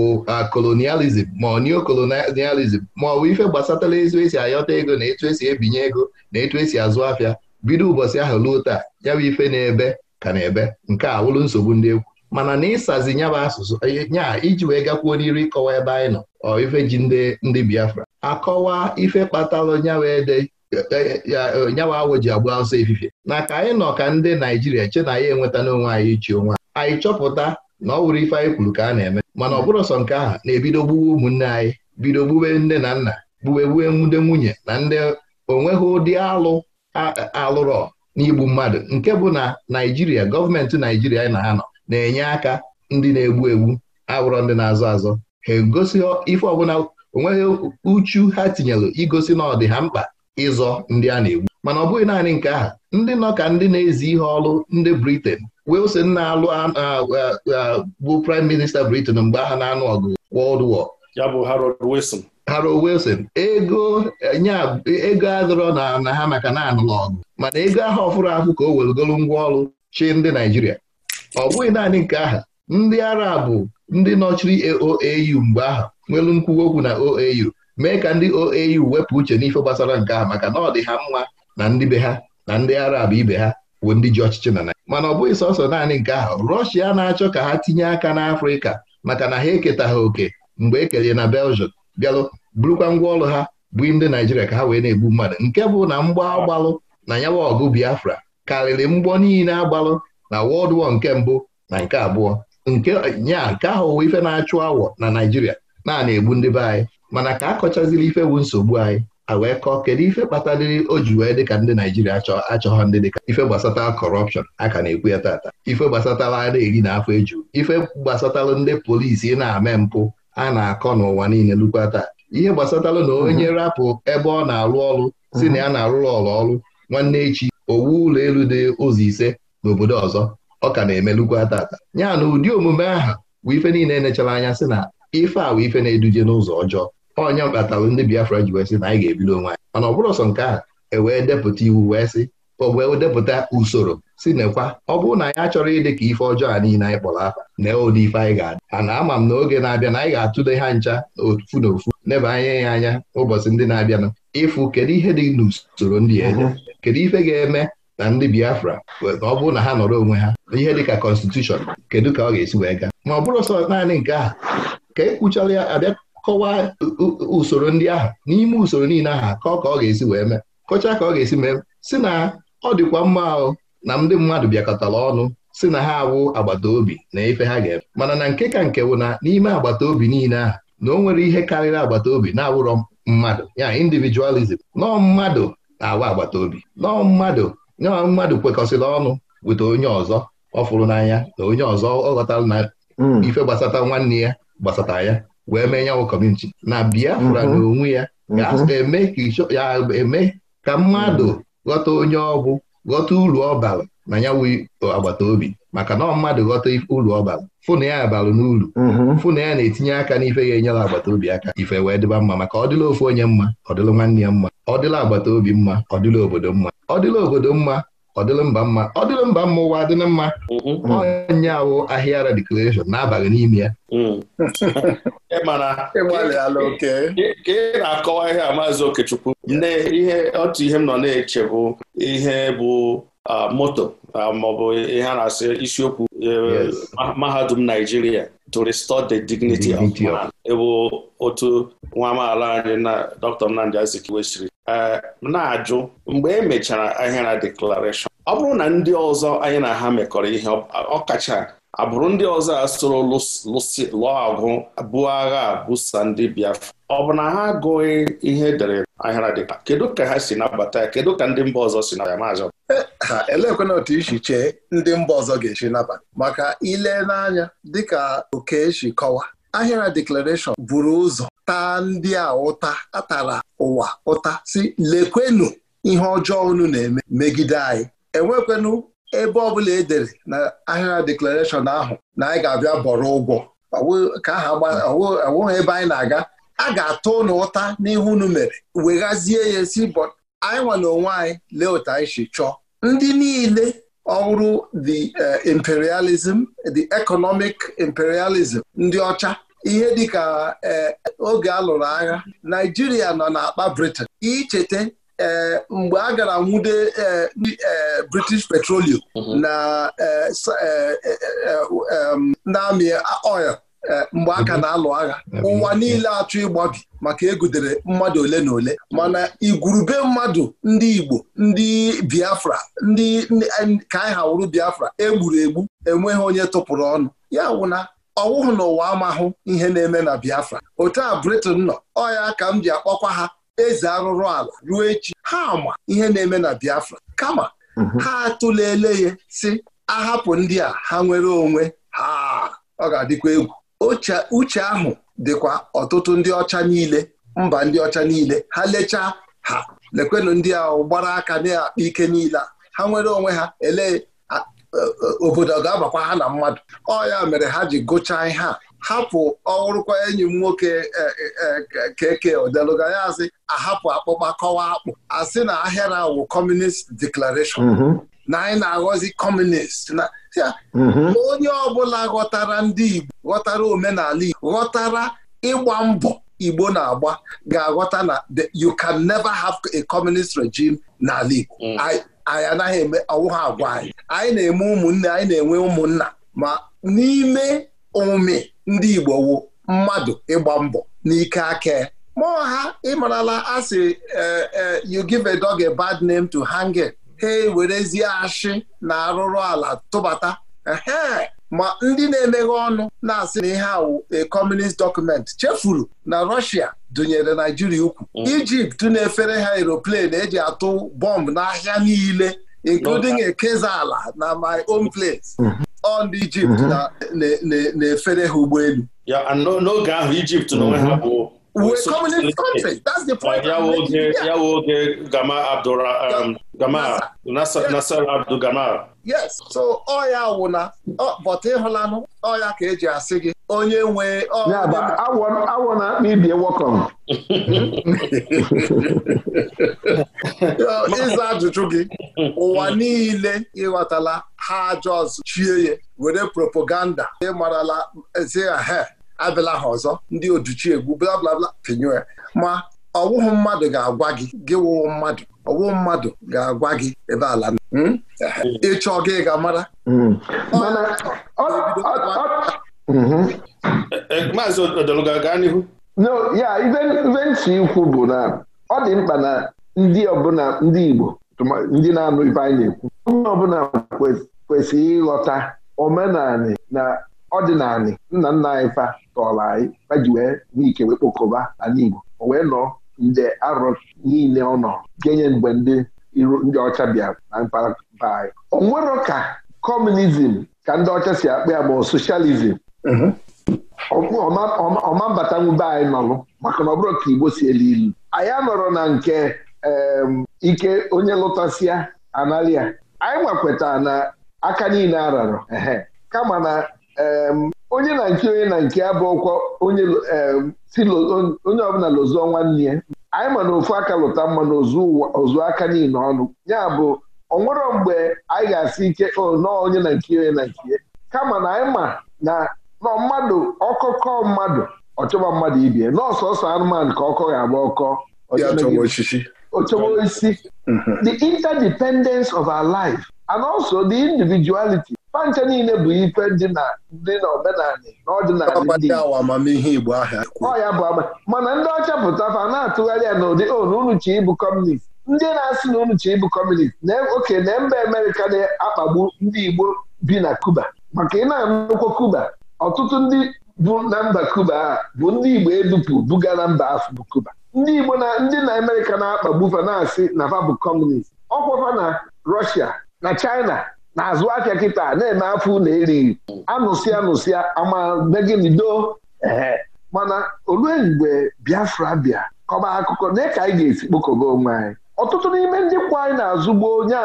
kolonializm ma ọ neokolonializm ma ọ ife gbasatara ezu esi ayọta ego na etu esi ebinye ego na etu esi azụ afịa bido ụbọchị ahụ ruo taa ya bụ ife na-ebe ka na-ebe nke a wụrụ nsogbu ndị egwu mana na ịsazi nya bụ asụsụ e, nya iji wee gakwuo n'iru ịkọwa ebe anyị nọ ọ ife ji ndị ndị Biafra akọwa ife kpatalụ nyawa e, e, nyawa awọ ji agba ọsọ efifie na ka anyị nọ ka ndị Naijiria che na ya enweta n'onwe anyị ichi onwe anyị chọpụta na ọ wụrụ ife anyị kwuru ka a na-eme mana ọ bụrụ sọ nke ahụ na-ebido gbuwe ụmụnne anyị bido gbuwe nne na nna gbuwe gbuwe nwunye na ndị onweghị ụdị alụ alụrọ n'igbu mmadụ nke bụ na Naijiria gọọmenti Naijiria anyị na ha nọ na-enye aka ndị na-egbu egbu agwụrọ ndị na-azọ azọ ha egosi ife ọbụla onweghị uchu ha tinyelụ igosi na ọ dị ha mkpa ịzọ ndị a na-egbu mana ọ bụghị naanị nke aha. ndị nọ ka ndị na-ezi ihe ọrụ ndị briten Wilson na-alụ bụ Prime minista briten mgbe ha na-anụ ọgụ wọld War ya bụ Harold Wilson Harold Wilson ego nya ego adịrọ na na ha maka na-anụ ọgụ mana ego aha ọfụrụ ahụ ka o welugolu ngwa ọrụ chi ndị Naijiria ọ bụghị naanị nke aha ndị arabụ ndị nọchiri OAU mgbe aha nwelu nkwuwa okwu na OAU mee ka ndị OAU wepụ uche n'ife gbasara nke aha maka na ọ dị ha mma na ndị be ha na ndị arab ibe ha bụ ndị ji ọchịchị na mana ọ bụghị sọsọ naanị nke aha Rọshia na-achọ ka ha tinye aka n'Afrịka maka na ha eketaghị oke mgbe e kelee na beljiọm bịalụ burukwa ngwa ọrụ ha bụ ndị Naịjirịa ka ha wee na-egbu mmadụ nke bụ na mgbọ agbalụ na nyawa ọgụ Biafra karịrị mgbọ niile agbalụ na World War nke mbụ na nke abụọ nke nya nke ahụ ụwa ife na-achụ awọ na Naijiria na na-egbu ndị be anyị mana ka a kọchaziri ife bụ nsogbu anyị a wee kọọ kedu ife kpataliri o ji wee dịka ndị Naịjirịa achọghọ ndị dịka ife gbasatara kọrọpshọn aka na-ekwu ya tata ife gbasatara a na-eri na afọ eju ife gbasatara ndị polisi na-ame mpụ a na-akọ n'ụwa niile lukwa taa ihe gbasatara na onye mhm. rapụ ebe ọ na-arụ ọrụ si na ya na-arụrụ ọrụ ọrụ nwanne echi owu ụlọ elu dị ụzọ ise n'obodo ọzọ ọ ka na-emelukwu ata. ya na ụdị omume ahụ bụ ife niile enechara anya sị na ife a bụ ife na-eduje n'ụzọ ọjọọ onye mkpatara ndị Biafra ji wee sị na anyị ga-ebido onwe anyị mana ọ bụrụ sọ nke a ewee depụta iwu wee sị o wee depụta usoro si nekwa ọ bụrụ na anya achọrọ ịdị ka ife ọjọọ a niile anyị kpọrọ afa na ụdị ife anyị ga-adị a na ama m na oge na-abịa na anyị ga-atụle ha ncha ofu na ofu neba anya ya anya ụbọchị ndị na-abịanụ ịfụ kedu ihe dị n'usoro ndị eje mhm. kedu ife ga-eme na ndị Biafra ọ bụrụ na ha nọrọ onwe ha ihe dịka kọnstitushọn kedu ka ọ ga-esi wee gaa ma ọ bụrụ sọ naanị nke ahụ ka ekwuchara ya abịa kọwaa usoro ndị ahụ n'ime usoro niile ahụ ka ọ ka ọ ga-esi wee mee kọchaa ka ọ ga-esi mee si na ọ dịkwa mma ahụ na ndị mmadụ bịakọtara ọnụ si na ha awụ agbata obi na ife ha ga-eme mana na nke ka nke bụ na n'ime agbata obi niile ahụ na o nwere ihe karịrị agbata obi na-awụrọ mmadụ ya individualism nọọ mmadụ na-awụ agbata obi nọọ mmadụ ya mmadụ kwekọsịrị ọnụ weta onye ọzọ ọ fụrụ n'anya na onye ọzọ ọ ghọtara na hmm. ife gbasata nwanne ya gbasata ya wee mee nyanwụ kọmuniti na Biafra hmm. na onwe ya ga-eme hmm. ka mmadụ ghọta onye ọ bụ ghọta uru ọba na ya agbata obi maka na ọ mmadụ ghọta uru ọ fụna ya abalụ n'ulu. fụ ya na-etinye aka n'ife ga-enyere agbata obi aka ife wee dịba mma maka ọ dịla ofu onye mma ọ dịla nwanne ya mma ọ dịla agbata obi mma ọ dịla obodo mma ọ dịla obodo mma ọ dịla mba mma ọ dịla mba mma ụwa adịla mma onye mm-hmm. awụ ahịa declaration na-abaghị n'ime ya ka mm. ị na-akọwa ihe a maazị Okechukwu ihe otu ihe m nọ na-eche bụ ihe bụ moto maọbụ ihe a na-asị isiokwu e, mahadum Naijiria to restore the dignity of man. bụ otu nwa amaala anyị na Dr. Nnamdi Azikiwe siri E, na-ajụ mgbe e mechara ahịara deklarashọn ọ bụrụ na ndị ọzọ anyị na ha mekọrọ ihe ọkacha abụrụ ndị ọzọ a soro lụọ agwụ buo agha busa ndị Biafra ọ bụ na ha agụghị ihe edere ahịara dịka kedu ka ha si nabata ya kedu ka ndị mba ọzọ si nabata maazị e, ha elekwana otu isi chee ndị mba ọzọ ga-esi nabata maka ile n'anya dịka oke e kọwa ahịara deklarashọn buru ụzọ taa ndị a ụta atara ụwa ụta si lekwenu ihe ọjọọ unu na-eme megide anyị enwekwenu ebe ọbụla edere na ahịa deklarashọn ahụ na anyị ga-abịa bọrọ ụgwọ ọwụghị ebe anyị na-aga a ga-atụ ụnụ ụta n'ihu unu mere weghazie ya si bọ anyị nwa onwe anyị lee otu anyị si chọọ ndị niile ọhụrụ the eh, imperialism the economic imperialism ndị ọcha ihe dịka e, oge a lụrụ agha Naijiria nọ na n'akpa Britain icheta e, mgbe a gara nwude e, British Petroleum mhm. na amị oil mgbe aka mhm. na-alụ agha ụwa niile achọ ịgbabi maka egudere mmadụ ole na ole mana igwurube mmadụ ndị Igbo ndị Biafra ndị ka anyị Biafra egburu egbu enweghị onye tụpụrụ ọnụ ya wụna ọwụhụ n'ụwa amahụ ihe na-eme na Biafra otu a Britain nọ ọya ka m ji akpọkwa ha eze arụrụ ala ruo echi ha ma ihe na-eme na Biafra kama mhm. ha atụlele ya si ahapụ ndị a ha nwere onwe ha ọ ga-adịkwa egwu uche ahụ dịkwa ọtụtụ ndị ọcha niile mba ndị ọcha niile ha lechaa ha lekwenụ ndị a gbara aka na-akpa ike niile ha nwere onwe ha elee obodo ga-abakwa ha na mmadụ ọ ya mere ha ji gụchaa ihe a hapụ ọhụrụkwa enyi m nwoke keke e, e, odeluga ya asị ahapụ akpụkpa kọwa akpụ asị na ahịara awụ kọmunist deklarashọn mhm. na anyị na-aghọzi kọmunist mhm. na onye ọbụla ghọtara ndị Igbo ghọtara omenala Igbo ghọtara ịgba mbọ Igbo na-agba ga-aghọta na you can never have a communist regime n'ala Igbo mm. anyị anaghị eme ọwụ ha agwa anyị anyị na-eme ụmụnne anyị na-enwe ụmụnna ma n'ime omume ndị Igbo wu mmadụ ịgba mbọ n'ike aka ma ha ịmarala asị eh, eh, you give a dog a bad name to hang it ha ewerezie ashị na arụrụ ala tụbata ma ndị na-emeghe ọnụ na-asị na ihe ahụ a communist document chefuru na Russia dụnyere Naijiria ukwu Ijipt mm. na-efere ha aeroplane eji atụ bọmbụ n'ahịa niile including ala na my own place on mm-hmm. Egypt mm-hmm. na-efere ha ụgbọelu n'oge ahụ Ijipt n'onwe ha mm-hmm. bụ We're so, communist so, country. That's the point. Uh, Yawoge, Yawoge Gama Abdura, um, Gama, Nasser, Abdul Gama. Yes. So ọ ya ọ but ịhụlanụ e ọ ya ka eji asị gị onye nwe awọ na akpa ibie wọkọm. Ịza ajụjụ gị ụwa niile ịghọtala ha ajọ ọzọ chie were propaganda ịmarala ezi ha abịala ha ọzọ ndị oduchi egwu bla bla bla pinye ya ma ọwụhụ mmadụ ga-agwa gị gị wụwụ mmadụ ọwụhụ mmadụ ga-agwa gị ebe ala hmm? ịchọ gị ga mara hmm. mm-hmm. e, e, maazị odologa gaa n'ihu no ya ibe ntị ikwu bụ na ọ dị mkpa na ndị ọbụla ndị Igbo ndị na-anụ ibe anyị na-ekwu onye ọbụla kwesịrị ịghọta omenala na ọdịnali nna nna anyị fa tọrọ anyị fa ji wee n'ike wee kpokọba ala Igbo o wee nọ nde arọ niile ọ nọ genye mgbe ndị iru ndị ọcha bịara na mpaghara anyị o nwero ka kọmunizm ka ndị ọcha si akpa ya ma mhm. ọ soshalizm ọma anyị nọlụ maka na ọ bụrụ ka Igbo si elu ilu anyị anọrọ na nke ike onye lụtasịa analia anyị nwakweta na aka niile ararọ ehe kama na onye na nke onye na nke abụ onye ọbụla lụzụọ nwanne ya anyị ma na ofu aka lụta mma na ozu aka niile ọnụ ya bụ onwero mgbe anyị ga-asị ike nọọ onye na nke onye na nke kama na anyị ma na nọ mmadụ ọkọkọ mmadụ ọchọba mmadụ ibie n'ọsọsọ anụmanụ ka ọkọ ga-agba ọkọ ochọba osisi mhm. the interdependence of our life and also the individuality pancha niile bụ ife dị na ndị n'omenala n'ọdịnala ndị Igbo ọ bụ ama mana ndị ọcha pụtafa na-atụgharị ya n'ụdị onu oh, unu ịbụ kọmunist ndị na-asị na unu chi ịbụ kọmunist na e, oke na mba Amerịka na-akpagbu ndị Igbo bi na Kuba maka ị na-anụkwa Kuba ọtụtụ ndị bụ na mba Kuba a bụ ndị Igbo edupu buga na mba afọ bụ Kuba ndị Igbo na ndị na Amerịka na-akpagbu fa na-asị na fa bụ kọmunist ọkwafa na Rọshia na China na-azụ ahịa kịta na-eme afọ na eri anụsịa anụsịa amadeginido ee mana olue mgbe Biafra bịa kọba akụkọ na ka anyị ga-esi kpokọba onwe anyị ọtụtụ n'ime ndị kwa anyị na-azụgbo onye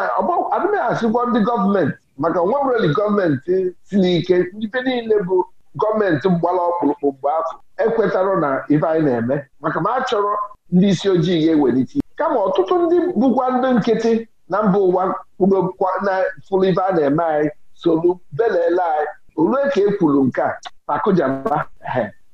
adịghị asịkwa ndị gọọmenti maka nwa nwere gọọmenti si n'ike ife niile bụ gọọmenti mgbala ọkpụrụkpụ mgbe afọ ekwetara na ife anyị na-eme maka ma achọrọ ndị isi ojii ga-ewelite kama ọtụtụ ndị bụkwa ndị nkịtị na mba ụwa fụrụ ife a na-eme anyị solu belele anyị olue ka e kwuru nke a akụjaba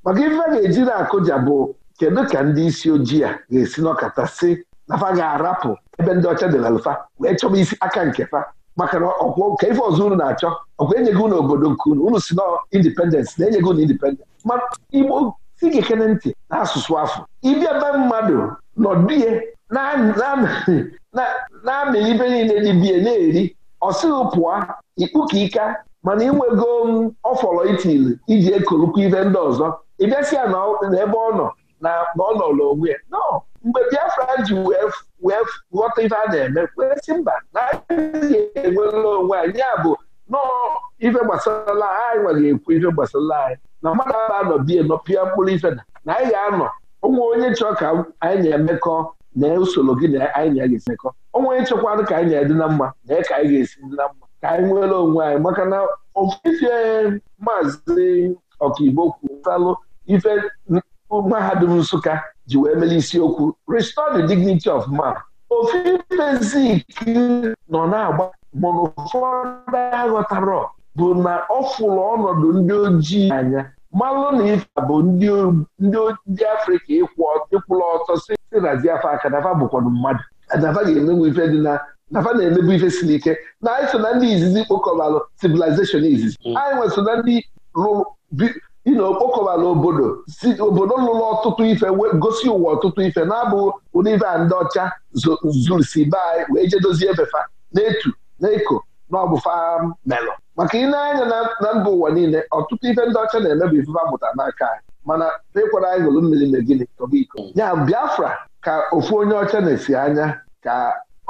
maka ife ga-eji na-akụja bụ kedu ka ndị isi ojii a ga-esi n'ọkata si nafa ga-arapụ ebe ndị ọcha na alụfa wee chọba isi aka nke fa maka na ọkwọ ka ife ọzọ unu na-achọ ọkwa enyeghị unu obodo nke unu unu si na indipendensị na enyeghị unu indipendensị ma igbo si gị ekene ntị na-asụsụ afọ ịbịa be mmadụ nọdụ ihe na-amị ibe niile biya na-eri ọ sịghị pụọ ikpukika mana inwego um, ọfọrọ itili iji ekolukwa ive ndị ọzọ ịbịasịa n'ebe ọ nọ na ọ nọrọ onwe ya no mgbe Biafra ji wee ghọta ife a na-eme kwesị mba na anyị enwela onwe anyị ya bụ nọọ ife gbasara anyị nwere ekwu ife gbasara anyị na mmadụ aba anọ bie nọ pịa mkpụrụ ife na anyị ga-anọ onwe onye chọọ ka anyị na-emekọ na usoro gị na anyị na ga ga-esimekọ onwe nchekwadụ ka anyị na-edị na mma na ka anyị ga-esi dị na mma ka anyị nwere onwe anyị maka na ofefe maazị ọkaigbo kwutalụ ife mahadum Nsụka ji wee mere isiokwu restore the dignity of man ofifezik nọ na-agba mana ụfọdụ aghọtara bụ na ọ fụrụ ọnọdụ ndị ojii anya malụ na ife bụ ndị afrịka ịkwụla ọtọ si naziafa aka nafa bụkwanụ mmadụ nafa ga-emenwe ife dị na nafa na-emebu ife si n'ike na anyị so na ndị izizi kpokọbalụ civilization izizi mm. anyị nwe so na ndị ina okpokọbala obodo si obodo lụrụ ọtụtụ ife gosi ụwa ọtụtụ ife na abụ ụdị ife a ndị ọcha zuru si be anyị wee jedozie dozie na etu na eko na ọbụfa um, melọ maka ị na-anya na mba ụwa niile ọtụtụ ife ndị ọcha na-eme bụ ifufe mụtara n'aka anyị mana ịkwara anyị gụrụ mmiri na gịnị tọba iko ya Biafra ka ofu onye ọcha na-esi anya ka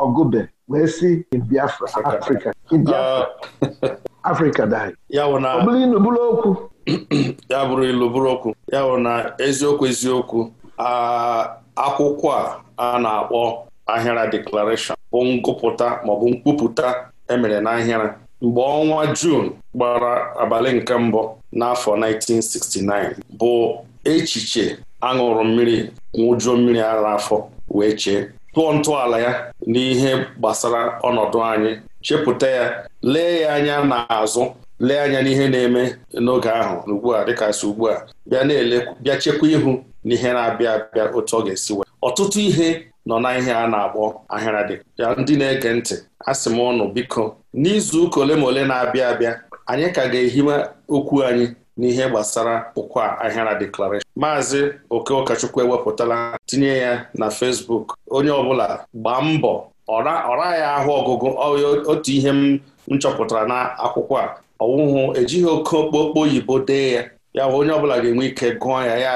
ọgụbe wee si Biafra Afrịka uh, Biafra Afrịka daghị ọ bụrụ ilu bụrụ okwu ya bụrụ ilu bụrụ okwu ya bụ na eziokwu eziokwu akwụkwọ a a na-akpọ ahịara deklarashọn bụ ngụpụta maọbụ mkpupụta emere n'ahịara mgbe ọnwa Juun gbara abalị nke mbụ n'afọ 1969 bụ echiche aṅụrụ mmiri nwụjuo mmiri ara afọ wee chee tụọ ntọala ya n'ihe gbasara ọnọdụ anyị chepụta ya lee ya anya n'azụ lee anya n'ihe na-eme n'oge ahụ ugbu a dịka si ugbu a bịa na-ele bịa chekwa ihu n'ihe na-abịa abịa otu ọ ga-esi wee ọtụtụ ihe nọ na ihe a na-akpọ ahịara dị ya ndị na-ege ntị asị m ọnụ biko n'izu ụka ole ma ole na-abịa abịa anyị ka ga ehiwe okwu anyị n'ihe gbasara ụkwa ahịara deklarashọn maazị oke ụkọchukwu ewepụtala tinye ya na fesbuk onye ọbụla gbaa mbọ ọra ya ahụ ọgụgụ otu ihe m chọpụtara na akwụkwọ a ọwụhụ ejighị oke okpokpo oyibo dee ya ya onye ọbụla ga-enwe ike gụọ ya ya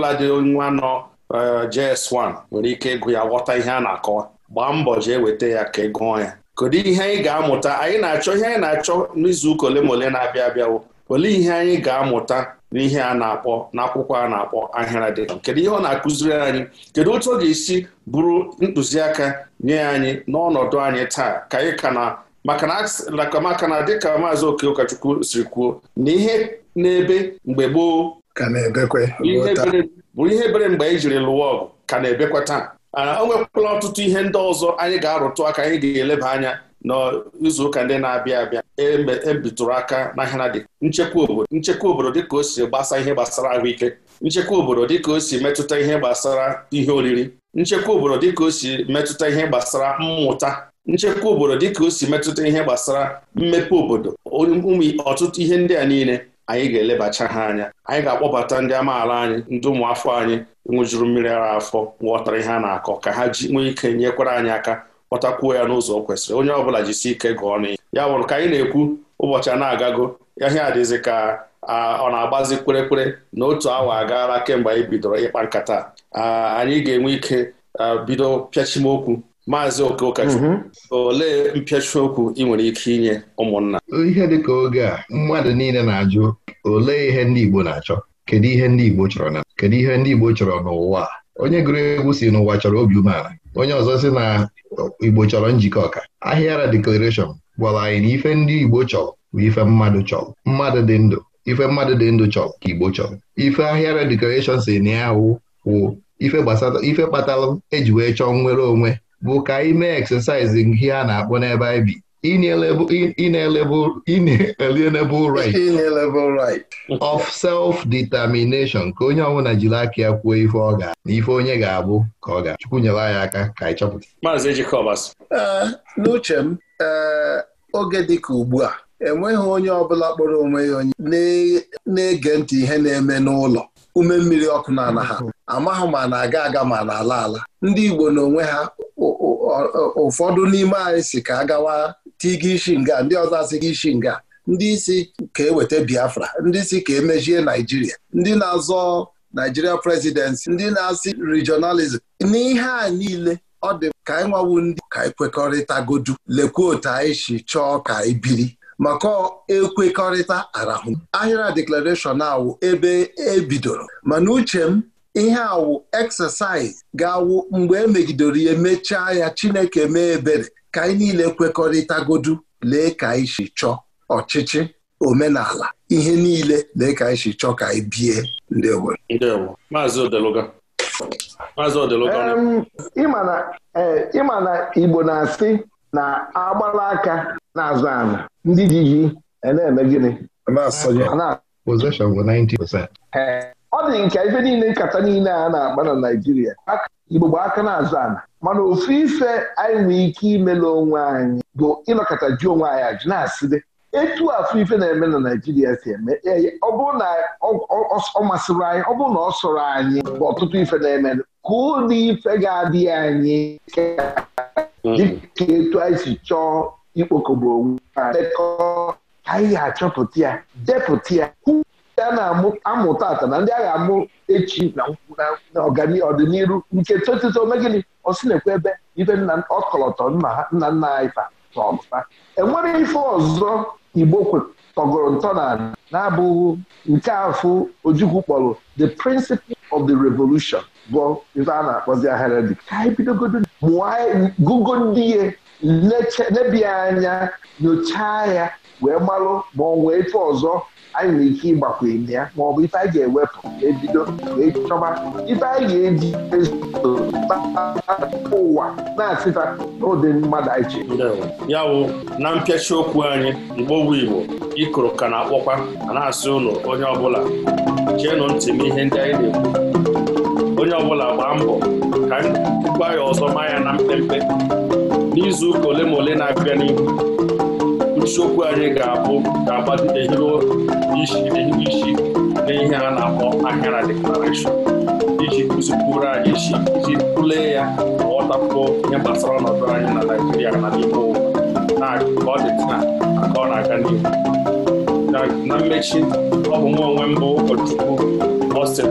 ma dị nwa nọ Uh, JS1 nwere ike ịgụ ya ghọta ihe a na-akọwa gbaa mbọ jee weta ya ka ị ya kedu ihe anyị ga-amụta anyị na-achọ ihe anyị na-achọ n'izuụka ole ma ole na-abịa abịawo olee ihe anyị ga-amụta n'ihe a na-akpọ n'akwụkwọ a na-akpọ ahịra dịka kedu ihe ọ na-akụziri anyị kedu otu ọ ga-esi bụrụ ntụziaka nye anyị n'ọnọdụ anyị taa ka anyị ka na maka na dịka maazị oke ụkọchukwu siri kwuo na ihe n'ebe mgbe gboo ihe bụrụ ihe bere mgbe anyị e jiri lụwa ọgụ ka na-ebekwa taa ah, o nwekwala ọtụtụ ihe ndị ọzọ anyị ga-arụtụ aka anyị ga-eleba anya n'izuụka ndị na-abịa abịa ebitụrụ e aka na ha dị nchekwa obodo nchekwa obodo dịka o si gbasa ihe gbasara ahụike nchekwa obodo dịka o si metụta ihe gbasara ihe oriri nchekwa obodo dịka o si metụta ihe gbasara mmụta nchekwa obodo dịka o si metụta ihe gbasara mmepe obodo ụmụ ọtụtụ ihe ndị a niile anyị ga-elebacha ha anya anyị ga-akpọbata ndị amaala anyị ndị ụmụafọ anyị nwụjuru mmiri ara afọ ghọtara ihe a na-akọ ka ha ji nwee ike nyekwara anyị aka kpọtakwuo ya n'ụzọ o kwesịrị onye ọbụla jisi ike gụọ n'ihe ya wụrụ ka anyị na-ekwu ụbọchị a na-agago ahịa adịzi ka ọ na-agbazi kwerekwere na otu awa agaala kemgbe anyị bidoro ịkpa nkata anyị ga-enwe ike bido okwu. Maazị Okokachukwu mhm. olee mpịachi okwu ị nwere ike inye ụmụnna ihe dịka oge a mmadụ niile na-ajụ olee ihe ndị Igbo na-achọ kedu ihe ndị Igbo chọrọ na kedu ihe ndị Igbo chọrọ n'ụwa onye gụrụ egwu si n'ụwa chọrọ obi umeala onye ọzọ si na Igbo chọrọ njikọ ọka ahịara dekoreshọn gwara anyị na ife ndị Igbo chọrọ bụ ife mmadụ chọrọ mmadụ dị ndụ ife mmadụ dị ndụ chọrọ ka Igbo chọrọ ife ahịara deklarashọn si na ya wụ ife gbasara ife kpatara eji wee chọọ nnwere onwe bụ ka ime exercising ihe a na-akpọ n'ebe anyị bi inalienable right of self-determination ka onye ọbụla jiri aka ya kwuo ife ọ ga na ife onye ga-abụ ka ọ ga Chukwu nyere anyị aka ka anyị chọpụta Maazị n'uche m oge dị ka ugbu a enweghị onye ọbụla kpọrọ onwe ya onye na-ege ntị ihe na-eme n'ụlọ ume mmiri ọkụ n'ala ha Amaghị ma na-aga aga ma na-ala ala ndị Igbo n'onwe ha ụfọdụ n'ime anyị si ka agawa tiga ishi nga ndị ọzọ asịga ishi nga ndị isi ka eweta Biafra ndị isi ka emejie Naijiria ndị na-azọ Naijiria presidency ndị na-asị regionalism n'ihe a niile ọ dị ka anyị nwawu ndị ka e anyị godu lekwa otu anyị si chọọ ka anyị e biri maka ekwekọrịta arahụ ahịrịa deklarashọn awụ ebe ebidoro mana uche m ihe awụ eksesaiz ga-awụ mgbe emegidere ya mechaa ya Chineke mee ebere ka anyị niile kwekọrịta kwekọrịtagodu lee ka anyị si chọọ ọchịchị omenala ihe niile lee ka anyị si chọọ ka anyị bie ndewo Maazị Maazị eh, ịma na Igbo na-asị na agbala aka na-azụ ndị ji ji e na-eme gịnị ọ dị nke ife niile nkata niile a na-akpa na naijiria Igbo gba aka na-azụ ana mana ofu ife anyị nwee ike ime onwe anyị bụ ịnọkọta ji onwe anyị ajụ na-asịrị etu afọ ife na-eme na Naijiria si eme e, ọ bụrụ na ọ masịrị anyị ọ bụrụ na ọ sọrọ anyị bụ ọtụtụ ife na-eme ka ụdị ife ga-adị anyị dịka etu anyị si chọọ ikpokọgbu onwe anyị ga-achọpụta ya depụta ya a na-amụ tata na ndị agha amụ echi na na ọganihu ọdịnihu nke totito megịnị osi na-ekwe ebe ibe nna ọkọlọtọ nna nna anyị fa enwere ife ọzọ igbo tọgoro ntọ na na-abụghị nke afụ ojukwu kpọrọ the principle of the revolution bụ ife a na-akpọzi ahịrịdị ka anyị bidogodo mụọ gụgo ndị ihe lebie anya nyochaa ya wee malụ ma ọ nwee etu ọzọ anyị nwere ike ịgbakwunye ya ma ọ bụ ife anyị ga-ewepụ ebido wee chọba ife anyị ga-eji ezo ụwa na-asịta n'ụdị mmadụ anyị chere ya wụ na mpịachi okwu anyị Igbo wu Igbo ikoro ka na-akpọkwa a na-asị ụlọ onye ọbụla cheenụ ntị m ihe ndị anyị na-ekwu onye ọbụla gbaa mbọ ka gwa ya ọzọ ma ya na mpempe n'izu ụka ole ma ole na-abịa n'ihu isiokwu anyị ga-abụ ga-agbadide isi isi na ihe a na-akpọ akara deklarashọn iji kụzipụrụ anyị isi iji tụlee ya ghọtakwuo ihe gbasara ọnọdụ anyị na naijiria na n'ime ụwa ka ọ dị taa ka ọ na-aga n'ihu na mmechi ọ bụ nwa onwe mbụ ụkọchukwu Austin